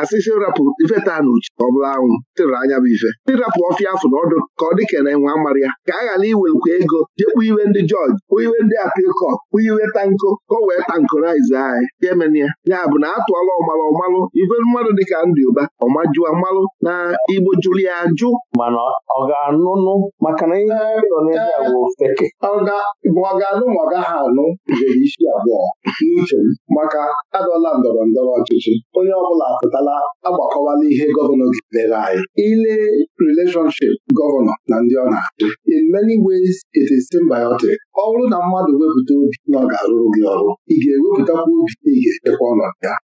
asịsị rapụ ife taa na ọbụla ọ bụla anwụ anya bụ ife ndị rapụ ọfịa afọ na ọdụ ka ọ dịka na enwe ya ka a ghara iwekwa ego jekwu iwe ndị kpụ iwe ndị kpụ iwe tanko ka o wee tankorize anyị jemenia ya bụ na atụọla ọmalụ ọmalụ ife mmadụ dịka ndị ụba Ọmaju, mmalụ na igbo jụrụ ya ajụ mana ọ ga-anụnụ maka na ihe anyị nọ n'ebe a bụ feke bụ ọ ga-anụ ma ọ gaghị anụ jere isi abụọ n'uche m maka adọla ndọrọ ndọrọ ọchịchị onye ọbụla apụtala agbakọwala ihe gọvanọ gidere anyị ile relationship gọvanọ na ndị ọ na-achị in many ways it is symbiotic ọ bụrụ na mmadụ wepụta obi na ọ ga-arụrụ gị ọrụ ị ga-ewepụtakwa obi na ị ga-echekwa ọnọdụ ya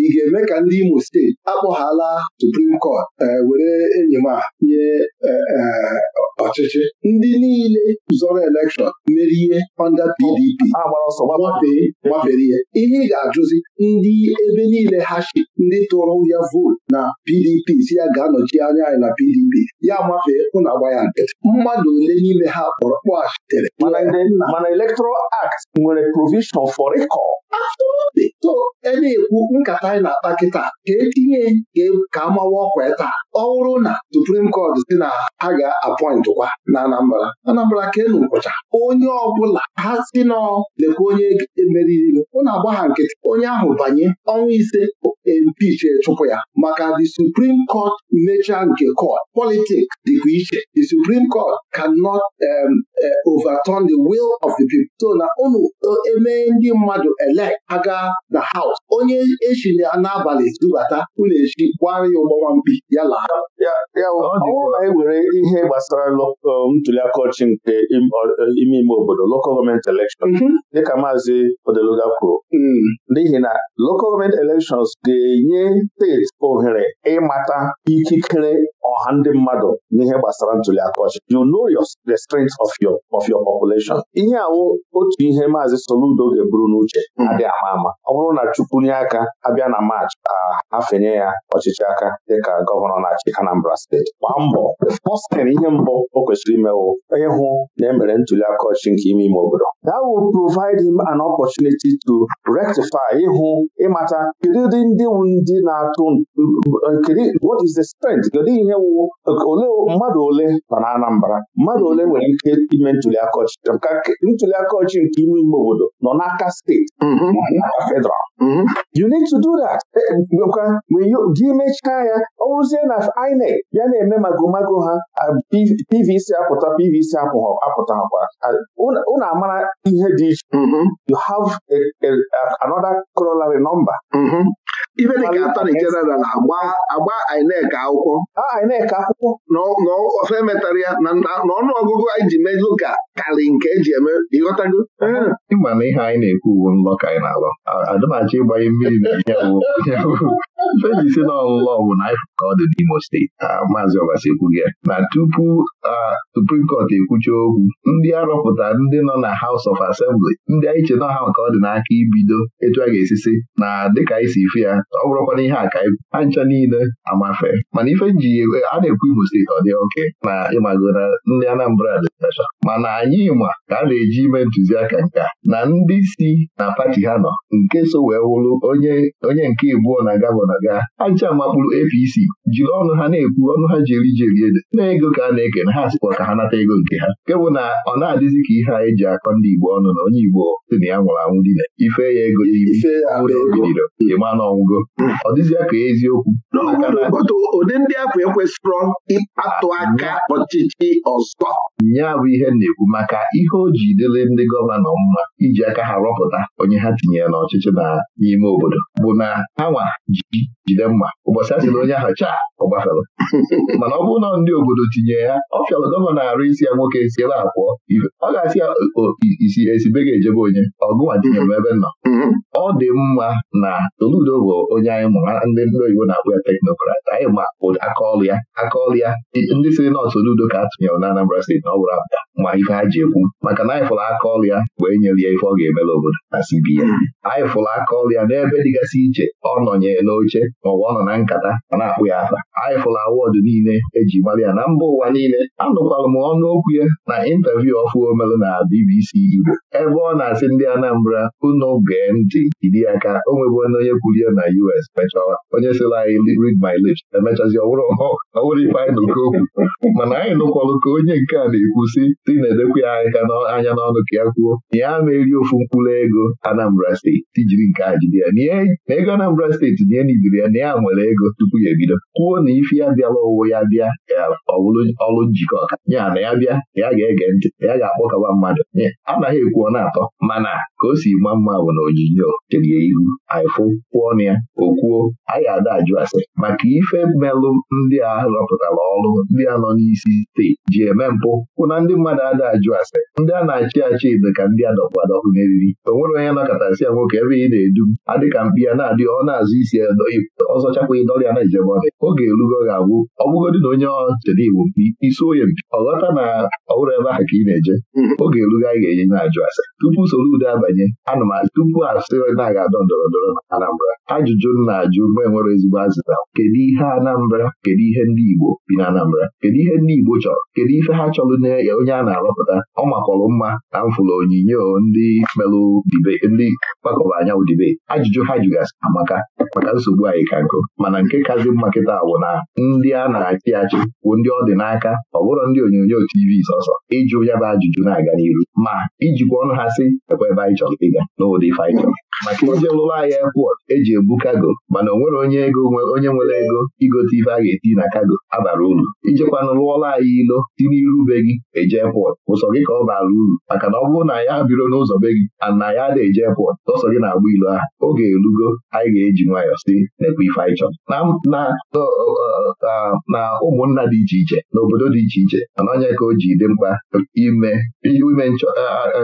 ị ga-eme ka ndị Imo steeti akpọghala Supreme kọt eh, were enyi m a nye eh, eh, ọchịchị ndị niile zọrọ elekshọn merie onda PDP gbafee gbafere ihe ihe ị ga-ajụzi ndị ebe niile ha shi ndị tụrụ ya vootu na PDP si ya ga-anọchi anya anyị na PDP ya mafee ụna agba ya nkịtị mmadụ ole n'ime ha kpọrọ kpọghachitere mana Electoral Act nwere provision for recall to na-ekwu nkata anyị na-akpa kịta ka etinye ka e, amawa ọkwa taa ọ na Supreme Court si na ha ga-apọịntị kwa na Anambra Anambra ka enu nkwụcha onye ọbụla ha si nọ lekwa onye emeriri ụna agba ha nkịtị onye ahụ banye ọnwa ise empich chụpụ ya maka the Supreme Court nature nke court politics dịkwa iche the suprim Court can um, uh, overturn the will of the people so na unu emee e, ndị mmadụ elect aga na haus onye echi n'abalị zubata ụlọ echi gbara ya ụgbọnwa mkpi ya laa ewere ihe gbasara um, ntuliaka ọchị nke ime ime obodo local gọọmenti elekshọn mhm. dịka maazị Odeluga kwuru mm. n'ihi na local government elections ga-enye steeti ohere ịmata ikikere ọha ndị mmadụ n'ihe gbasara ntuliaka ọchị you know your the strength of your of your population ihe awụ otu ihe maazị Soludo ga-eburu n'uche mm. adịghị ama ama ọ bụrụ na Chukwu nye aka abịa na Maachị afenye ya ọchịchị aka dịka gọvanọ na-achị Anambra steeti gbaa mbọ pọstin ihe mbụ o kwesịrị imewo onye hụ na emere ntuli aka nke ime ime obodo that will provide him an opportunity to rectify ịhụ ịmata kedu ụdị ndị ndị na-atụ what is the strength kedu ihe wụ ole mmadụ ole nọ na Anambra mmadụ ole nwere ike ime ntuli aka ntuli aka nke ime ime obodo nọ n'aka steeti mm-hmm. federal mm-hmm. you need to do that eh, INEC ya na-eme ha PVC apụta PVC apụta ife dịka atani jeneral agba agba INEC akwụkwọ na ofe emetara ya na ọnụ ọgụgụ anyị ji melụ ka karị nke eji eme ịghọtago ịma na ihe anyị na-ekwu uwe nlọ ka anyị na-alọ adịmachi ịgbanye mmiri na na si n'ọlụlụ na bụla ka ọ dị n'Imo steeti ah, maazị Ọbasi ekwughị ya na tupu ah, Supreme Court ekwucha okwu ndị arọpụta ndị nọ na Haus of Assembly ndị anyị che ha nke ọ dị n'aka ibido etu a ga-esisi na dịka anyị si ife ya ọ bụrụkwa na ihe aka ibu ha ncha niile amafe mana ife ji eh, a na-ekwu Imo steeti ọ dị oke na ịmago na ndị Anambra dịtacha mana anyị ma ka a na-eji ime ntụziaka nka na ndị si na pati ha nọ nke so wee wụlụ onye nke ịbụọ na gavana ọbụla gaa ancha makpụrụ APC jiri ọnụ ha na-ekwu ọnụ ha jeri jeri ede na ego ka a na-eke na ha sịkwa ka ha nata ego nke ha nke bụ na ọ na-adịzi ka ihe anyị e ji akọ ndị Igbo ọnụ na onye Igbo sị na ya nwụrụ anwụ dị na ife ya ego iwụrụ ịma na ọnwụgo hmm. ọ dịzịa ka eziokwu ụdị ndị ahụ ekwesịrọ ịkpatụ aka hmm. ọchịchị ọzọ ya bụ ihe na-ekwu maka ihe o ji dịrị ndị gọvanọ mma iji aka ha rọpụta onye ha tinyere n'ọchịchị n'ime obodo bụ na ha nwa jide mma ụbọchị a jiri onye ahụ chaa ọ gbafere mana ọ bụrụ na ndị obodo tinye ya ọ fịara gọvanọ arụ isi ya nwoke si ebe pụọ ọ ga-asị ya isi esibe ga-ejebe onye ọgụnwa tinye m ebe nọ mm-hmm. ọ dị mma na Soludo bụ onye anyị mụrụ ndị ndị oyibo na akpụ ya teknokrat anyị ma aka ya aka ya ndị siri na Soludo ka a tụnyere na Anambra steeti na ọ bụrụ apụta ma ife ha ji ekwu maka na anyị fụrụ aka ọrụ ya wee nyere ya ife ọ ga-emere obodo na CBN mm-hmm. anyị fụrụ aka ọrụ ya n'ebe dịgasị iche ọ nọnyere n'oche oche n'ụwa ọ nọ na nkata a na-akpụ ya afa anyị fụla awọdụ niile eji mara ya na mba ụwa niile anụkwara m ọnụokwu ya na ịntaviu ọfụ omelụ na BBC Igbo ebe ọ na-asị ndị Anambra unu gee ntị iri ka o nwebụ onye ya na US mechaa onye sịrị anyị read my lips emechazi ọwụrụ ọwụrụ ife anyị nụkọ okwu mana anyị nụkwalụ ka onye nke a na-ekwu si dị na-edekwa ya aka anya n'ọnụ ka ya kwuo ya na-eri ofu mkpụrụ ego Anambra steeti tijiri nke a jide ya na ego Anambra steeti nye iziri ya na ya nwere ego tupu ya ebido kwuo na ifi ya bịala ụwụ ya bịa ọbụrụ ọrụ njikọ ọka ya na ya bịa na ya ga-ege ntị ya ga-akpọkọba mmadụ anaghị ọ na-atọ mana ka o si ma mma bụ na onyinyo cherie ihu anyịfụ kwụọ na ya o kwuo a ga-ada ajụ asị maka ife melụ ndị a rọpụtara ọrụ ndị a nọ n'isi steeti ji eme mpụ kwụ na ndị mmadụ ada ajụ asị ndị a na-achị achị dị ka ndị adọkpụ adọkpụ meriri o nwere onye nọkọtasị ya nwoke ebe ị na-edu adịka mkpi ya na adịghị ọ na-azụ isi edo ọzọ chakwa ịdọrịa na ijebe ọrịa oge erugo ga-abụ ọbụgodị na onye ọchede Igbo isi onye mpi ọghọta na ọhụrụ ebe ahụ ka ị na-eje oge mm-hmm. erugo anyị ga-enye na-ajụ ase tupu soro ude abanye anụmanụ tupu asị na-aga adọ ndọrọ ndọrọ na Anambra ajụjụ na-ajụ mgbe nwere ezigbo azịza kedu ihe Anambra kedu ihe ndị Igbo bi na Anambra kedu ihe ndị Igbo chọrọ kedu ife ha chọrọ na onye a na-arọpụta ọ makọrọ mma na mfụlụ onyinye ndị kpakọba anyanwụ dibe ajụjụ ha jụgasị amaka maka nsogbu nsogbu anyị ka nkụ mana nke kazi mma kịta bụ na ndị a na-achị achị bụ ndị ọ dị n'aka ọ bụrụ ndị onyonyo TV sọsọ ịjụ ya bụ ajụjụ na-aga n'iru ma ijikwa ọnụ ha sị ekwe ebe anyị chọrọ ịga n'ụdị ife anyị chọrọ maka ije lụrụ ahịa airport eji ebu kago mana onwere onye ego onye nwere ego igote ife a ga-eti na kago abara uru ijekwana lụọla anyị ilo si n'iru be gị eje airport ụsọ gị ka ọ bara uru maka na ọ bụrụ na ya biro n'ụzọ be gị ana ya ada eje airport tọsọ gị na-agba ilo ahụ oge elugo anyị ga-eji nwayọọ si na ife anyị chọrọ na ụmụnna dị iche iche na obodo dị iche iche mana onye ka o ji dị mkpa ime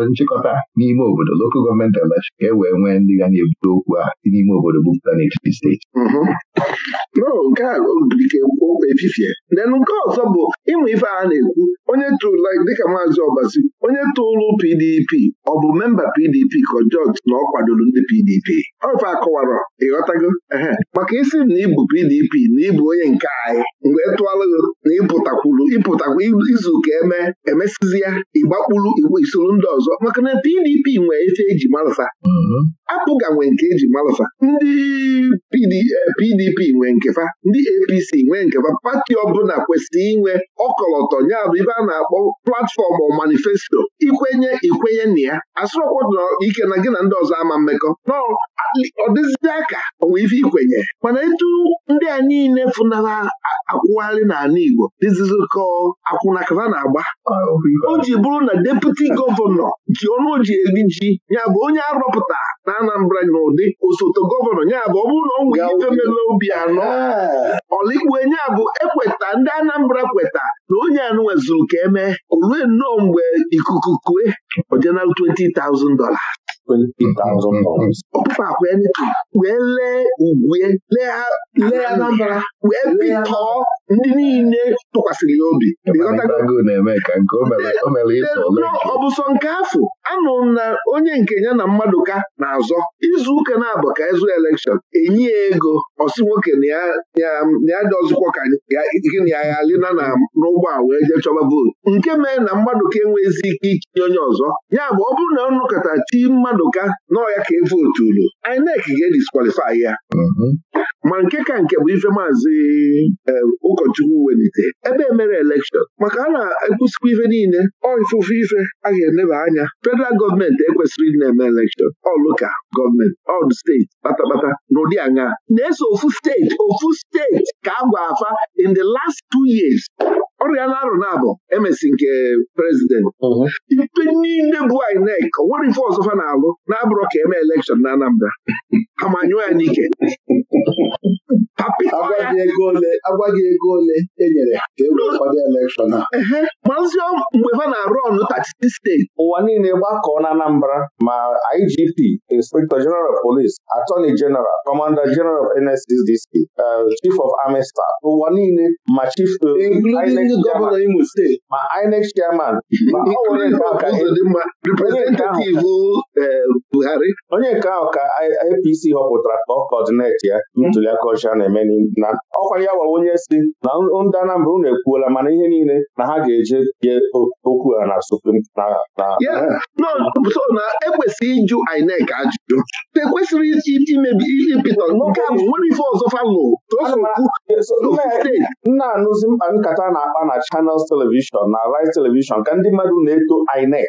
nchịkọta n'ime obodo lokal gọọmenti elekshọn ka e wee nwee ndị ga na-ebute okwu a dị n'ime obodo bupụta n'etiti steeti nke a efifie nenu nke ọzọ bụ ịmụ ife a na-ekwu onye tụla dịka maazị ọbasi onye tụlụ PDP ọ bụ memba PDP ka jọji na ọ kwadoro ndị PDP ọfe akọwara ịghọtago maka isi na ịbụ PDP na ịbụ onye nke anyị mgbe tụalụgo na ịpụtakwuru ịpụtakwu izu ka eme emesizi ya ịgbakpuru igbo isoro ndị ọzọ maka na PDP nwee ife eji marụsa apụga nwe nke eji malụfa ndị PDP eh, nwee nkefa ndị APC nwee nkefa pati ọbụla kwesịrị inwe ọkọlọtọ ya bụ ibe a na-akpọ platfọm ọ manifesto ikwenye ikwenye na ya asụrọkwa ike na gị na ndị ọzọ ama mmekọ nọ ọ aka onwe ife ikwenye mana etu ndị a niile fụnara akwụgharị n'ala Igbo dịzizikọ akwụnakara na-agba o ji bụrụ na deputi gọvanọ ji ọnụ ji ya bụ onye arọpụta na Anambra n'ụdị osote gọvanọ ya bụ ọ bụrụ na ọ nwee ife mela obi anọ ah. ọlikwe ya bụ ekweta ndị Anambra kweta na onye anụ nwezuru ka emee olue nnọọ mgbe ikuku kue ojenal 20,000 wee lee ugwue lee wee pitọọ ndị niile tụkwasịrị ya obi ọ nke afọ anụrụ na onye nke ya na mmadụ ka na-azọ izu ụka na-abụ ka ịzụ elekshọn enyi ya ego ọsị nwoke na ya dị ọzụkwọ ka gịnị ya ghalina na n'ụgbọ a wee jee chọba vootu nke mee na mmadụ ka enweghịzi ike ichi onye ọzọ ya bụ ọ bụrụ na ọnụkọta chi mmadụ Madụka n'ọya ka e ulo, INEC ga-ediskwalifai ya mhm. ma nke ka nke bụ ife maazị eh, ụkọchukwu welite ebe emere elekshọn maka a na ekwusikwa ife niile ọ ifufe ife a ga-eneba anya federal gọọmenti ekwesịrị ịdị na-eme elekshọn ọlụka gọọmenti ọl steeti kpatakpata n'ụdị anya na-eso ofu steeti ofu steeti ka a gwa afa in the last two years Ọrịa na-arụ na-abụ emesi nke prezident uh-huh. ipe niile bụ INEC o nwere ife ọzọ fa na-alụ na-abụrụ ka eme elekshọn na Anambra ha manyụọ ya n'ike agwa gị ego ole enyere ka e kwado elekshọn a maazị mgbe ha na-arụ ọnụ 36 steeti ụwa niile gbakọọ na Anambra ma IGP Inspector General Police Attorney General Commander General of NSCDC uh, Chief of Army Staff ụwa niile ma Chief uh, Gọvanọ Imo Steeti ma INEC Chairman Buhari onye nke ahụ ka APC họpụtara ka ọ kọdineti ya ntụliaka ọcha na na-emeli na ọkwanye ya gwa onye si na ndị Anambra unu ekwuola mana ihe niile na ha ga-eje ye okwu ha na Supreme so na ekwesịrị ịjụ INEC ajụjụ ekwesịrị imebi ihe pịtọ nke a nwere ife ọzọ falụ e, nna anụzi mkpa nkata na-akpa na Channels Television na Rice Television ka ndị mmadụ na-eto INEC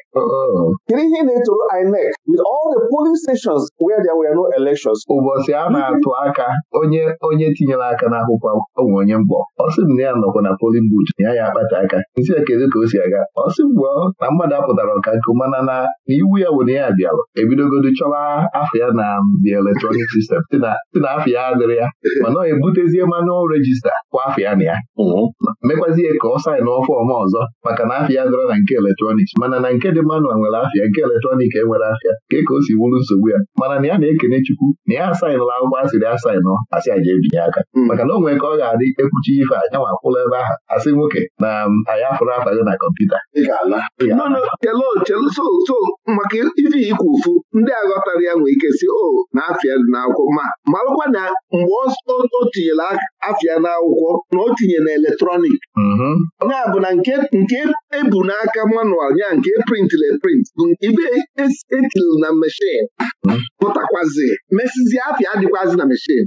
kedu ihe na-etoro INEC with all the polling stations where there were no elections ụbọchị a na-atụ aka onye onye etinyela aka n'akwụkwọ ọ nwere onye mkpọ ọ sị m na ya nọkwa na polin bud na ya ya akpata aka isi ya kedu ka o si aga ọ sị mgbe na mmadụ apụtara ọka nke mana na iwu ya were ya bịara ebidogodo chọwa afọ ya na the electronic system si na afọ ya adịrị ya mana ọ ebutezie manual regista kwa afọ ya na ya mm-hmm. mekwazie ka ọ ọfụ fọm ọzọ maka na afọ ya dịrọ na nke eletrọnik mana na nke dị manual nwere afịa nke eletrọnik enwere afịa ka e ka o si wuru nsogbu ya mana na ya na-ekene Chukwu na ya asainụla akwụkwọ asịrị asainụ asị aja ebi ntuli aka hmm. maka na o nwere ka ọ ga-adị ekwuchi ife a nwa akwụla ebe ahụ asị nwoke na anyị afụrụ afaghị na kọmputa so maka ife ikwu ụfụ ndị aghọtara ya nwee ike si o na afịa dị n'akwụkwọ ma marụkwa na mgbe o tinyere afịa n'akwụkwọ na o tinye na eletrọnik mm-hmm. ya bụ na nke ebu e n'aka manual ya nke e printịla print bụ ibe etiri e na meshin mm-hmm. pụtakwazi mesizi afịa adịkwazi na meshin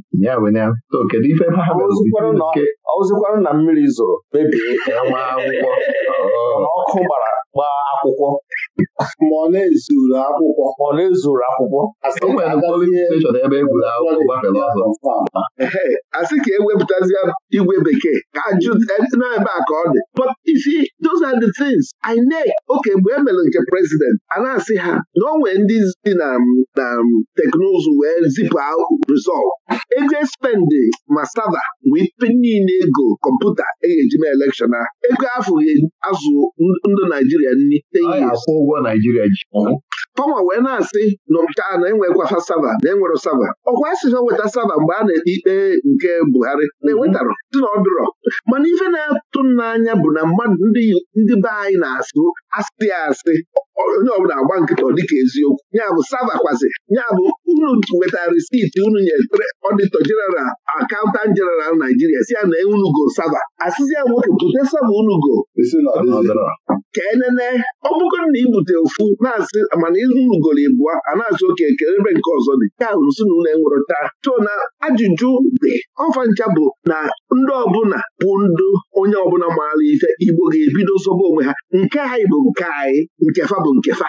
so na mmiri zụrụ mebie nwa akwụkwọ ọkụ gbara gbaa akwụkwọ ma ọ na-ezuru akwụkwọ ọ na-ezuru akwụkwọ a sị ka ewepụtazie e igwe bekee ka ajụ e, n'ebe a ka ọ dị but you those are the things INEC oke mgbe e mere nke prezident a na-asị ha na o nwee ndị dị na na teknụzụ wee zipụ rizọt eje Spendi ma sava wee niile ego kọmputa e ga-eji mee elekshọn a ego afọ azụ ndụ Naijiria nri ten years ọgwụgwọ Naijiria ji Tọma wee na-asị na nke a na-enwekwa ha sava na enwere sava ọkwa asịfa weta sava mgbe a na-ekpe ikpe nke Buhari na-enwetarọ dị na ọdụrọ mana ife na-atụ n'anya bụ na mmadụ ndị be anyị na-asụ asị asị onye ọbụla agba nkịta dịka eziokwu ya bụ kwazị. ya bụ unu wetara risiti unu nyere ọdịtọ jeneral akaụntant jeneral naijiria si ya na unugo sava asịzi ya nwoke bute sava unugo ka enene ọ bụgoro na ibute ofu na-asị mana unugoro ịbụọ a na-asị oke ekele ebe nke ọzọ dị ya hụrụ si na enwere taa so na ajụjụ dị ọfa ncha bụ na ndị ọbụla bụ ndụ onye ọbụla maara ife igbo ga-ebido nsogbu onwe ha nke ha bụ nke anyị nkefa bụ nke fa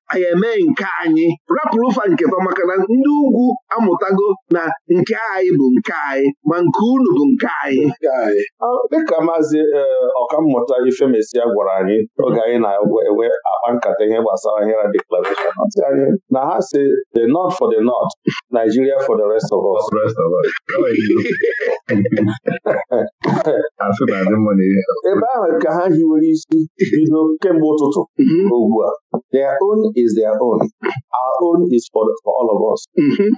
anyị eme nke anyị rapụrụ ụfa nketa maka na ndị ugwu amụtago na nke anyị bụ nke anyị ma nke unu bụ nke anyị dịka maazị eh, ọkammụta Ifemesia gwara anyị oge anyị na-enwe akpa nkata ihe gbasara ahịra deklarashọn na ha si the north for the north Nigeria for the rest of us ebe ahụ ka ha hiwere isi bido kemgbe ụtụtụ mhm. ugbu a is their own our own is for, for all of us mm-hmm.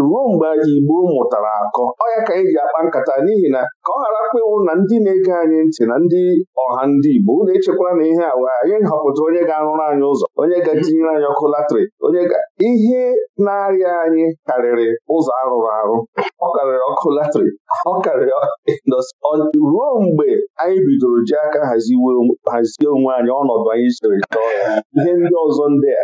ruo mgbe Igbo mụtara akọ ọ ya ka anyị e ji akpa nkata n'ihi na ka ọ ghara kpịwụ na ndị na-ege anyị ntị na ndị ọha ndị Igbo na echekwala na ihe awa anyị họpụtara onye ga-arụrụ anyị ụzọ onye ga-etinyere anyị ọkụ latrik onye ga ihe na-arịa anyị karịrị ụzọ arụrụ arụ ọ karịrị ọkụ latrik ọ karịrị ruo mgbe anyị bidoro ji aka hazie onwe anyị ọnọdụ anyị siri chọọ ihe ndị ọzọ ndị a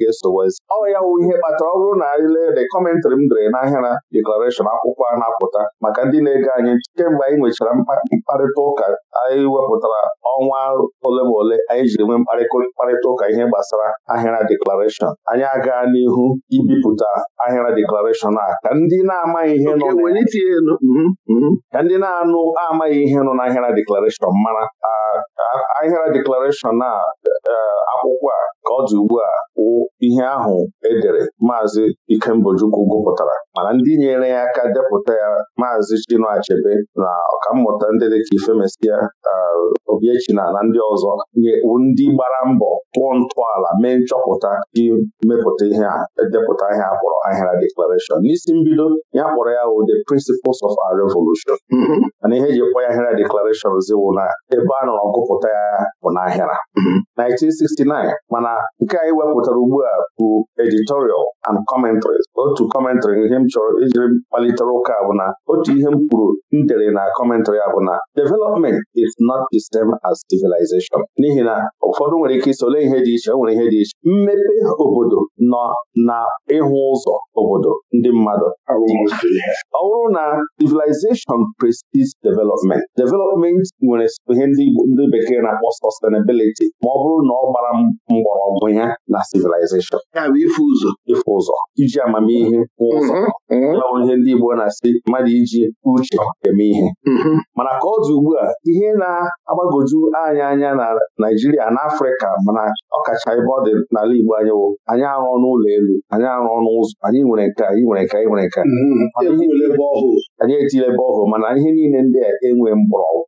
ga-esowazi ọ ya wụ ihe kpatara ọ bụrụ na anyị lee de kọmentrị m dere n'ahịara deklarashọn akwụkwọ a na-apụta maka ndị na-ege anyị kemgbe anyị nwechara mkparịta ụka anyị wepụtara ọnwa ole ma ole anyị jiri nwee mkparịta ụka ihe gbasara ahịara deklarashọn anyị aga n'ihu ibipụta ahịara deklarashọn a ka ndị na-amaghị ihe nọ mhm, mhm. ka ndị na-anụ amaghị ihe nọ n'ahịara deklarashọn mara ahịara deklarashọn a eh, akwụkwọ a ka ọ dị ugbu a ihe ahụ edere maazị ikembojukwu gụpụtara mana ndị nyere ya aka depụta ya maazị Chinua Achebe na ọkammụta ndị dịka Ifemesia Obiechina na ndị ọzọ nyewu ndị gbara mbọ tụọ ntọala mee nchọpụta imepụta ihe a edepụta ihe a kpọrọ ahịra deklarashọn n'isi mbido ya kpọrọ ya The Principles of Our Revolution mm-hmm. mana ihe eji kpọ ya ahịra deklarashọn ziwụ na ebe a nọrọ gụpụta ya bụ n'ahịra 1969 mm-hmm. mana nke anyị e wepụtara ugbu a a bụ editorial and commentaries otu kọmentrị ihe m chọrọ ijiri kpalitere ụka bụ na otu ihe m kwuru m dere na commentary a bụ na development is not the same as civilization n'ihi na ụfọdụ nwere ike isole ihe dị iche nwere ihe dị iche mmepe obodo nọ na ịhụ ụzọ obodo ndị mmadụ ọ bụrụ na civilization precedes development development nwere ihe ndị bekee na-akpọ sustainability ma ọ bụrụ na ọ gbara mgbọrọgwụ ya na civilization ya bụ ife ụzọ ife ụzọ iji amamihe ụzọ ya mhm, mhm. onye ndị Igbo na-asị mmadụ iji uche eme ihe mhm. mana ka ọ dị ugbu a ihe na-agbagoju anya anya na Naijiria na Afrịka mana ọkacha ebe ọ dị n'ala Igbo anyị wụ anyị arụ ọnụ ụlọ elu anyị arụ n'ụzọ ụzọ anyị nwere nke anyị nwere nke anyị nwere nke anyị etile ebe ọhụụ mana ihe niile ndị a enwe mgbọrọgwụ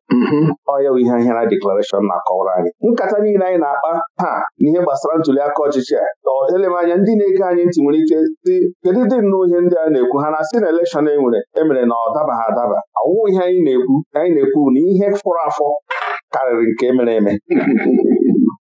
ọya ihe ahịara deklarashọn na-akọwara anyị nkata niile anyị na-akpa ha n'ihe gbasara ntuli aka ọchịchị a anya ndị na-ege anyị ntị nwere ike dị kedu dị nnọọ ihe ndị a na-ekwu ha na-asị na elekshọn e nwere emere na ọ dabaghị adaba ọwụ ihe anyị na-ekwu anyị na-ekwu na ihe fọrọ afọ karịrị nke e mere eme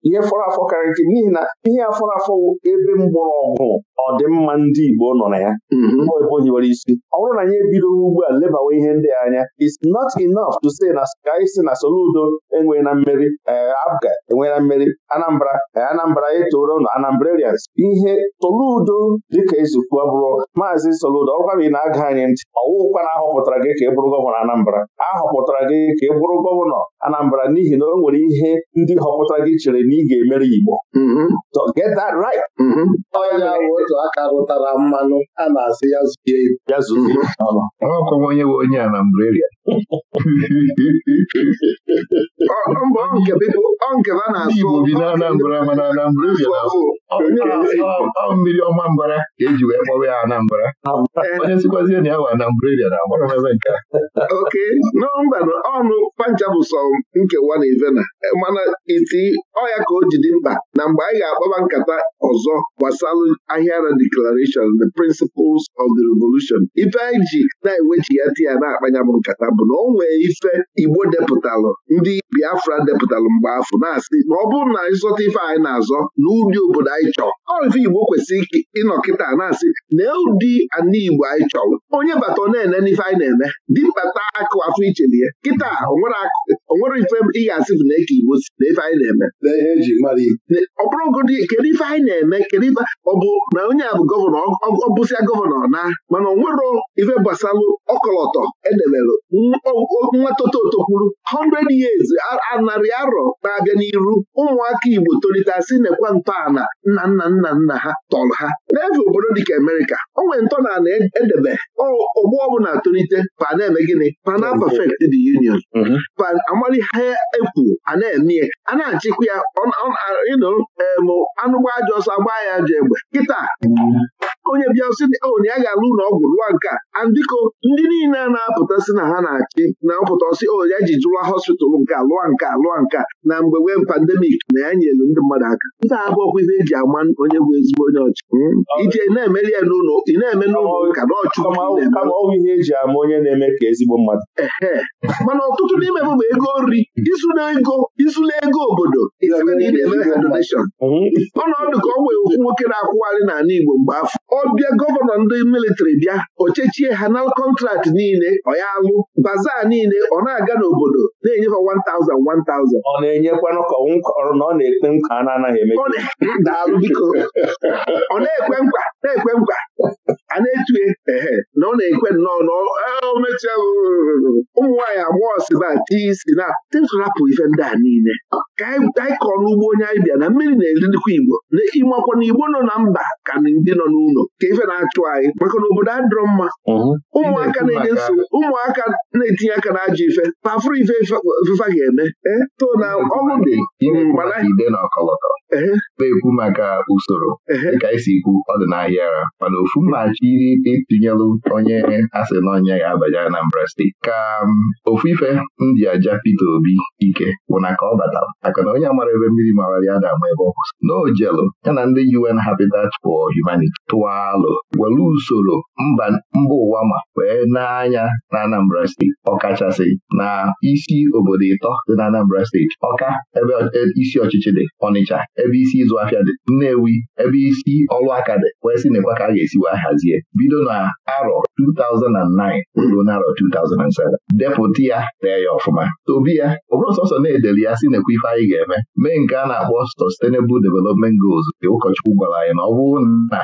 ihe fọrọ afọ karịrị n'ihi na ihe afọrọ afọ ebe mgbọrọgwụ ọdịmma ndị Igbo nọ na ya mm-hmm. ebe o isi ọ bụrụ na anyị ebidoghị ugbu a lebawa ihe ndị anya it's not enough to say na anyị si na Soludo enweghị na mmeri eh, Abga enweghị na mmeri Anambra eh, Anambra etoro ụlọ Anambrarians ihe Soludo dịka ezukwu bụrụ maazị Soludo ọkwa gị na-aga anyị ntị ọwụkwa na ahọpụtara gị ka ị bụrụ gọvanọ Anambra ahọpụtara gị ka ị bụrụ gọvanọ Anambra n'ihi na o nwere ihe ndị họpụtara gị chere na ị ga-emere Igbo to mm-hmm. get that right onye mm-hmm. bụ otu aka rụtara mmanụ a na-asị ya zuzie ya zuzie mm-hmm. ọkọwa onye bụ onye a na Naịjirịa nkebe a na-asụ bi na Anambra mana Anambra mmiri ọma mbara ka eji wee kpọrọ ya Anambra eh, onye sikwazie na ya wa Anambra na agbara mebe nke a oke nọmba ọnụ pancha bụ sọ nkewa na ivena eh, mana iti ọ ka o ji dị mkpa na mgbe anyị ga-akpaba nkata ọzọ gbasalụ na declaration the principles of the revolution ife anyị ji na-eweji ya ti na-akpanya bụ nkata bụ na ọ nwee ife igbo depụtalụ ndị biafra depụtalụ mgbe afọ na-asị na ọ bụrụ na anyị ife anyị na-azọ na ụdị obodo anyị chọrọ ife igbo kwesịrị ịnọ kịta na-asị na ụdị ana igbo anyị chọrọ onye bata na-ene n'ife anyị na-eme mkpata akụ afọ ichelie kịta onwere ife ị ga-asị bụ na eke igbo si na ife anyị na-eme na ihe eji mara ibe ọ bụrụgodị kedu ife anyị na-eme kedu ife ọ bụ na onye a bụ gọvanọ ọ bụsịa gọvanọ na mana onwero ife gbasalụ ọkọlọtọ edebelụ nwatoto tokwuru 100 years narị arọ na-abịa n'iru ụmụaka Igbo tolite asị nekwa ntọala nna nna nna nna ha tọrọ ha n'efe obodo dịka Amerịka o nwere ntọala edebe e ọgbọ ọbụla tolite pa na-eme gịnị na perfect union pa amali ha ekwu a na-eme a na-achịkwa ya ịnụ um, anụgba ajọ ọsọ agba ya ajọ egbe kịta onye bịa sị onye oh, ya ga-alụ ụlọ ọgwụ rụwa nke a andịko ndị niile na-apụta si na ha na-achị na mpụta ọsị onye oh, ji jụwa hospital nke alụwa nke alụwa nke na mgbe wee pandemik na ya nyelu ndị mmadụ aka nke a abụọkwizi eji ama onye bụ ezigbo onye ọchị hmm? ije na-emeri ya n'ụlọ ị na-eme n'ụlọ e ka na mana ọtụtụ n'ime bụ ego nri ego obodo ọnọdụ ka ọ wee ofu nwoke na-akwụgharị n'ala Igbo mgbe afọ ọ bịa gọvanọ ndị militari bịa o chechie ha na kọntraktị niile ọ ya alụ baza niile ọ na-aga n'obodo na-enyefe 1000 1000 ọ na-enyekwanụ ka ọrụ na ọ na-ekpe nkwa a na-anaghị eme daalụ biko ọ na-ekwe nkwa na-ekwe nkwa a na-etue ehe na ọ na-ekwe nnọọ naomechi ụmụ nwaanyị agbọghọ si na tii si na tịtụrapụ ife ndị a niile ka anyị kọrọ ugbo onye anyị bịa na mmiri na-erindikwa igbo na ịmakwa na igbo nọ na mba ka ndị nọ n'ụlọ ka ife na-achụ anyị maka na obodo adịrọ mma ụmụaka na-enye nsogbu ụmụaka na-etinye aka na ajọ ife pafụrụ ife fefa ga-eme e, to na ọgwụ dị na-ekwu maka usoro dịka esi ikwu ọdịnahịa ara mana ofu mmachi itinyelụ onye asị na onye ya abanye Anambra steeti ka um, ofu ife ndị aja Peter Obi ike bụ na ka ọ batara maka na onye amara mara ebe mmiri mara ya na-ama ebe ọ kwụsị na ya na ndị UN Habitat for Humanity tụwa alụ were usoro mba ụwa ma wee n'anya na Anambra steeti ọkachasị na isi obodo ịtọ dị na Anambra steeti ọka ebe e, isi ọchịchị dị Ọnịcha ebe isi ịzụ afịa dị Nnewi ebe isi ọrụ aka dị wee sị nekwa ka a ga-esiwa hazie bido na arọ 2009 ruo n'arọ 2007 depụta ya tee ya ọfụma obi ya ọ bụrụ sọsọ na-edeli ya sị nekwa ife anyị ga-eme mee nke a na-akpọ Sustainable Development Goals nke ụkọchukwu gwara anyị na ọ bụrụ na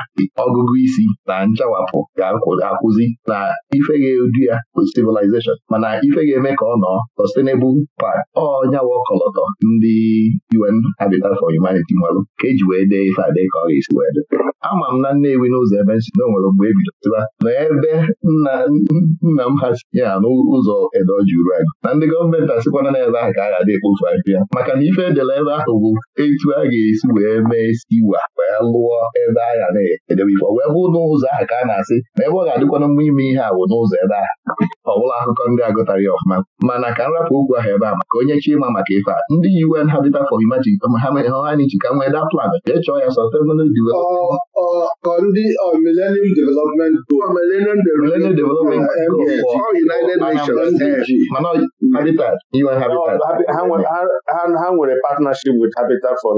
ọgụgụ isi na nchawapụ ga-akwụzi na ife ga-edu ya bụ civilization mana ife ga-eme ka ọ nọ Sustainable Park ọnyawa ọkọlọtọ ndị UN Habitat for Humanity nwere ka eji wee dee ife ade ka ọ ga-esi wee dị ama m na Nnewi n'ụzọ ebe nsi na o nwere mgbe e na ebe nna m ha si ya n'ụzọ edoji uru na ndị gọọmenti asịkwana n'ebe ahụ ka a ga-adị ekpofu maka na ife edere ebe ahụ bụ etu a ga-esi wee mee stiwa wee lụọ ebe agha na-edebe ife wee bụ n'ụzọ ahụ ka a na-asị ma ebe ọ ga-adịkwana mma ime ihe a n'ụzọ ebe ahụ ọ bụla akụkọ ndị agụtara ya ọfụma mana ka nrapụ okwu ahụ ebe a maka onye chima maka ife a ndị UN Habitat for Humanity ka nwee daa plan jee chọọ ya sustainable development ndị Millennium Development Goal mana Habitat UN Habitat ha nwere partner partnership with Habitat for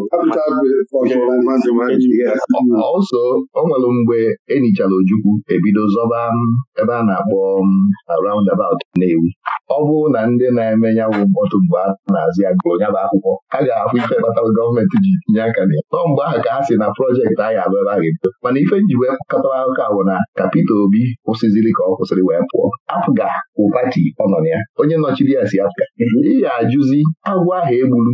also ọ nwere mgbe enichara Ojukwu ebido zọba um, ebe a na-akpọ um, roundabout Nnewi ọ bụrụ na ndị na-eme ya bụ mkpọtụ mgbe a na-azụ ya gụrụ ya akwụkwọ ha ga-ahụ ife kpatara gọọmenti ji tinye aka na ya mgbe ahụ ka ha si na projekti ahụ abụ ebe a ga-ebido mana ife nji wee kọtara akụkọ ahụ na ka Peter Obi kwụsịziri ka ọ kwụsịrị wee pụọ afụga bụ pati ọ nọ na ya onye nọchiri ya si afụga mhm. ị ga-ajụzi agwọ ahụ egburu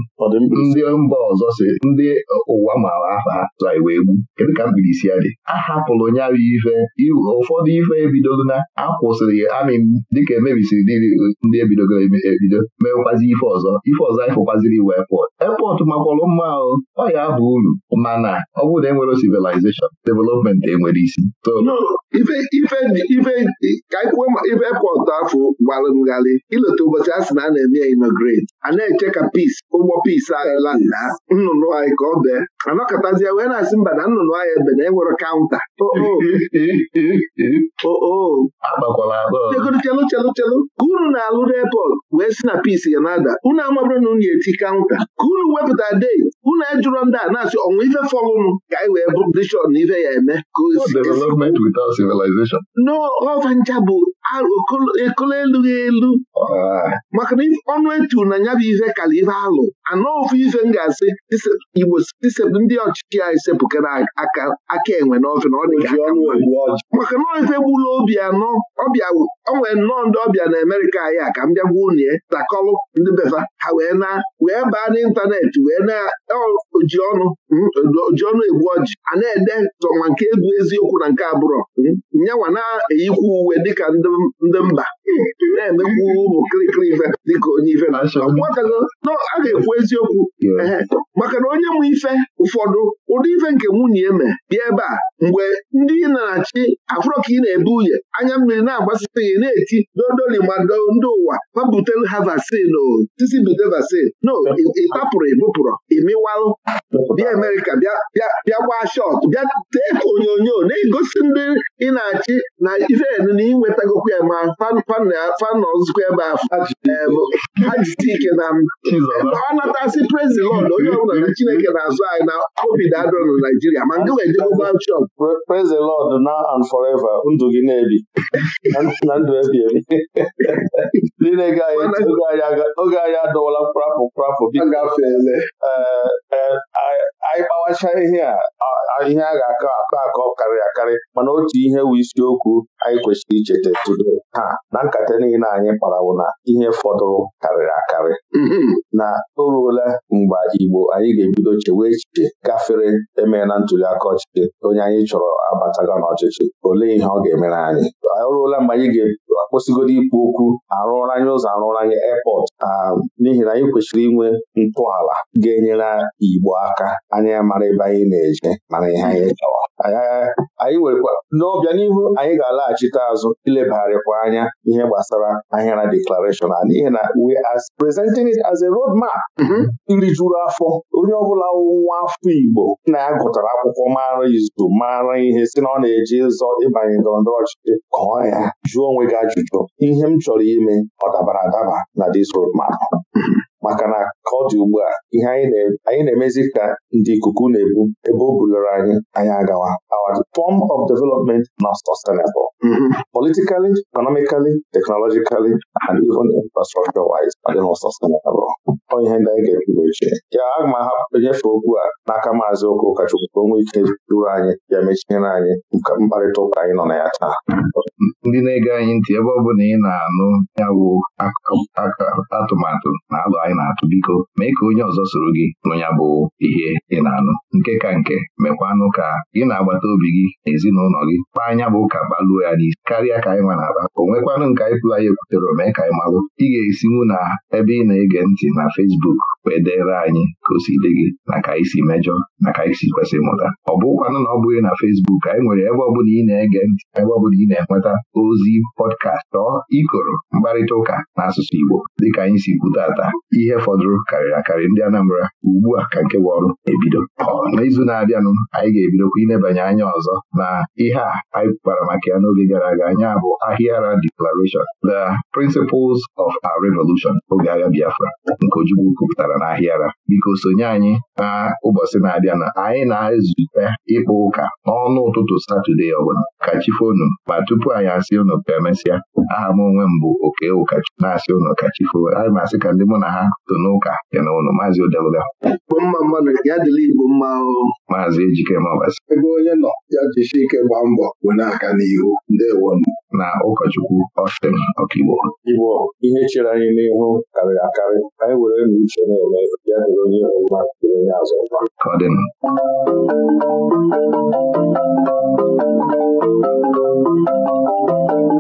ndị mba ọzọ si ndị e, ụwa mara aha tụra iwe egbu kedu ka mbilisi ya dị a hapụrụ nyarụ ife ụfọdụ ife ebidogo na akwụsịrị amị dịka emebisiri ndị ebidogoro ebido mewekwazi ife ọzọ ife ọzọ ịfụkwaziri iwe epọt epọt makwọrọ mma ahụ ọ ya bụ uru mana ọ bụrụ na enwere civilization development enwere isi ka ife epọt afọ gbalụ ngalị ileta ụbọchị a sị na a na-eme ya a na-eche ka pis ụgbọ pis ahụ ebeela nna nnụnụ anyị ka ọ bee anọkọtazie wee na-asị mba na nnụnụ anyị ebe na enwere kaụnta oh, oh. oh, oo ka unu na-alụ n'epọt wee si na pis ya na-ada unu amabụrụ na unu eti kaụnta ka unu wepụta dei unu ejụrọ ndị a na-asị ọnwa ife fọlụnụ ka anyị wee bụrụ dishọn na ife ya eme n'ọva ncha bụ ekolo elughị elu ah. maka na ọnụ etu na ya bụ ife kala ife alụ anọ ofu ife m ga-asị igbo isepụ ndị ọchịchị anyị sepụkara aka enwe n'ọfịa na ọ dị maka na ife gburu obi anọ ọbịa onwere nnọọ ndị ọbịa na Amerịka anyị a ka m bịa gwa ya takọlụ ndị befa ha wee na wee baa n'ịntanetị wee na oji ọnụ oji ọnụ egbu ọjị a na-ede sọma nke egwu eziokwu na nke abụrọ nyanwa na eyikwu uwe dịka ndị mba na-emekwu ụmụ kirikiri ife dịka onye ife na a ga-ekwu eziokwu maka na onye m ife ụfọdụ ụdị ife nke nwunye eme bịa ebe a mgbe ndị na-achị afụrọ ka ị na-ebu uye anya mmiri na-agbasịta ya na-eti dodoli mado ndị ụwa babutelu ha vaccine o tisi bute vaccine no ịtapụrụ ịbụpụrụ ịmịwalụ bịa Amerịka bịa gbaa shọt bịa tee onyonyo na-egosi ndị ị na-achị na iven na inwetagokwu ya ma fanọzụkwa ebe ahụ ha jite ike na pre praise the Lord onye ọbụla na Chineke na-azụ anyị na obi na Naijiria ma praise the Lord now and forever ndụ gị na-ebi oge anyị adọwala kprapụ anyị gbawacha ihe a ihe a ga-akọ akọ akọ karịrị akarị mana otu ihe wu isiokwu anyị kwesịrị icheta tudo ha na nkata niile anyị wụ na ihe fọdụrụ karịrị akarị mm-hmm. na o ruola mgbe Igbo anyị ga-ebido chewe echiche gafere emee na ntuli aka ọchịchị onye anyị chọrọ abataga n'ọchịchị olee ihe ọ ga-emere anyị o ruola mgbe anyị ga-akwụsịgodo ikwu okwu arụrụ ụzọ arụrụ anyị um, n'ihi na anyị kwesịrị inwe ntọala ga-enyere Igbo aka anyị mara ebe anyị na-eje mana ihe anyị chọrọ anyị nwekwa n'ọbịa n'ihu anyị ga-alaghachite azụ ilebagharịkwa anya ihe gbasara ahịara deklarashọn a n'ihi na we are presenting it as a road map mm-hmm. juru afọ onye ọbụla nwa afọ Igbo na ya gụtara akwụkwọ mara izu mara ihe si na ọ na-eji ịzọ ịbanye ndọrọndọrọ ọchịchị kọọ ya jụọ onwe gị ajụjụ ihe m chọrọ ime ọ dabara adaba na this road map mm-hmm. maka na ka ọ dị ugbu a ihe anyị na-emezi ka ndị ikuku na-ebu ebe o bulere anyị anyị agawa our form of development not sustainable mm-hmm. politically economically technologically and even infrastructure wise ọ dị not sustainable ọ ihe ndị anyị ga ebu eche ya aga m ahapụ nyefe okwu a n'aka maazị ụka ụkọchukwu ka o ike duru anyị ya mechiere anyị mkparịta ụka anyị nọ na ya taa mm-hmm. ndị na-ege anyị ntị ebe ọ na ị na-anụ ya bụ atụmatụ na alụ anyị na-atụ biko mee ka onye ọzọ soro gị nụnya bụ ihe ị na-anụ nke ka nke mekwanụ ka gị na agbata obi gị na ezinụlọ gị kpaa anya bụ ka baluo ya n'isi karịa ka anyị nwa na-aba o nwekwanụ nke anyị pụrụ anyị ekwutere mee ka anyị malụ ị ga-esinwu na ebe ị na-ege ntị na Fesbuk wee dere anyị ka o si dị gị na ka anyị si mejọ na ka anyị si kwesị mụta ọ bụkwanụ na ọ bụghị na Facebook anyị nwere ebe ọbụla ị na-ege ntị ebe ọ bụla ị na-enweta ozi pọdkastị ọ ikoro mkparịta ụka n'asụsụ Igbo dịka anyị si kwute ata ihe fọdụrụ karịrị akarị ndị Anambra ugbu a ka nke bụ ọrụ ebido n'izu na-abịanụ anyị ga-ebidokwa inebanye anya ọzọ na ihe a anyị kpara maka ya n'oge gara aga anya bụ Ahịara Declaration The Principles of Our Revolution oge agha Biafra nke Ojukwu kwupụtara na Ahịara biko sonye anyị na ụbọchị na-abịa na anyị na-ezute ịkpụ ụka n'ọnụ ụtụtụ Satọde ọbụla ka chifonu ma tupu anyị asị unu ka emesịa aha m onwe m bụ oke ụkachukwu na-asị unu ka chifo anyị masị ka ndị mụ na ha tụ n'ụka ya na unu maazị odeluga mma mmadụ ya dịla igbo mma ahụhụ maazị ejike mọbasị ebe onye nọ ya jisi ike gbaa mbọ bụ n'aka n'ihu ndewo na ụkọchukwu Austin Ọkigbo Igbo ihe chere anyị n'ihu karịrị akarị anyị were na uche na-eme ya dịrị onye ihu mma dịrị onye azụ ka ọ dị a e a aa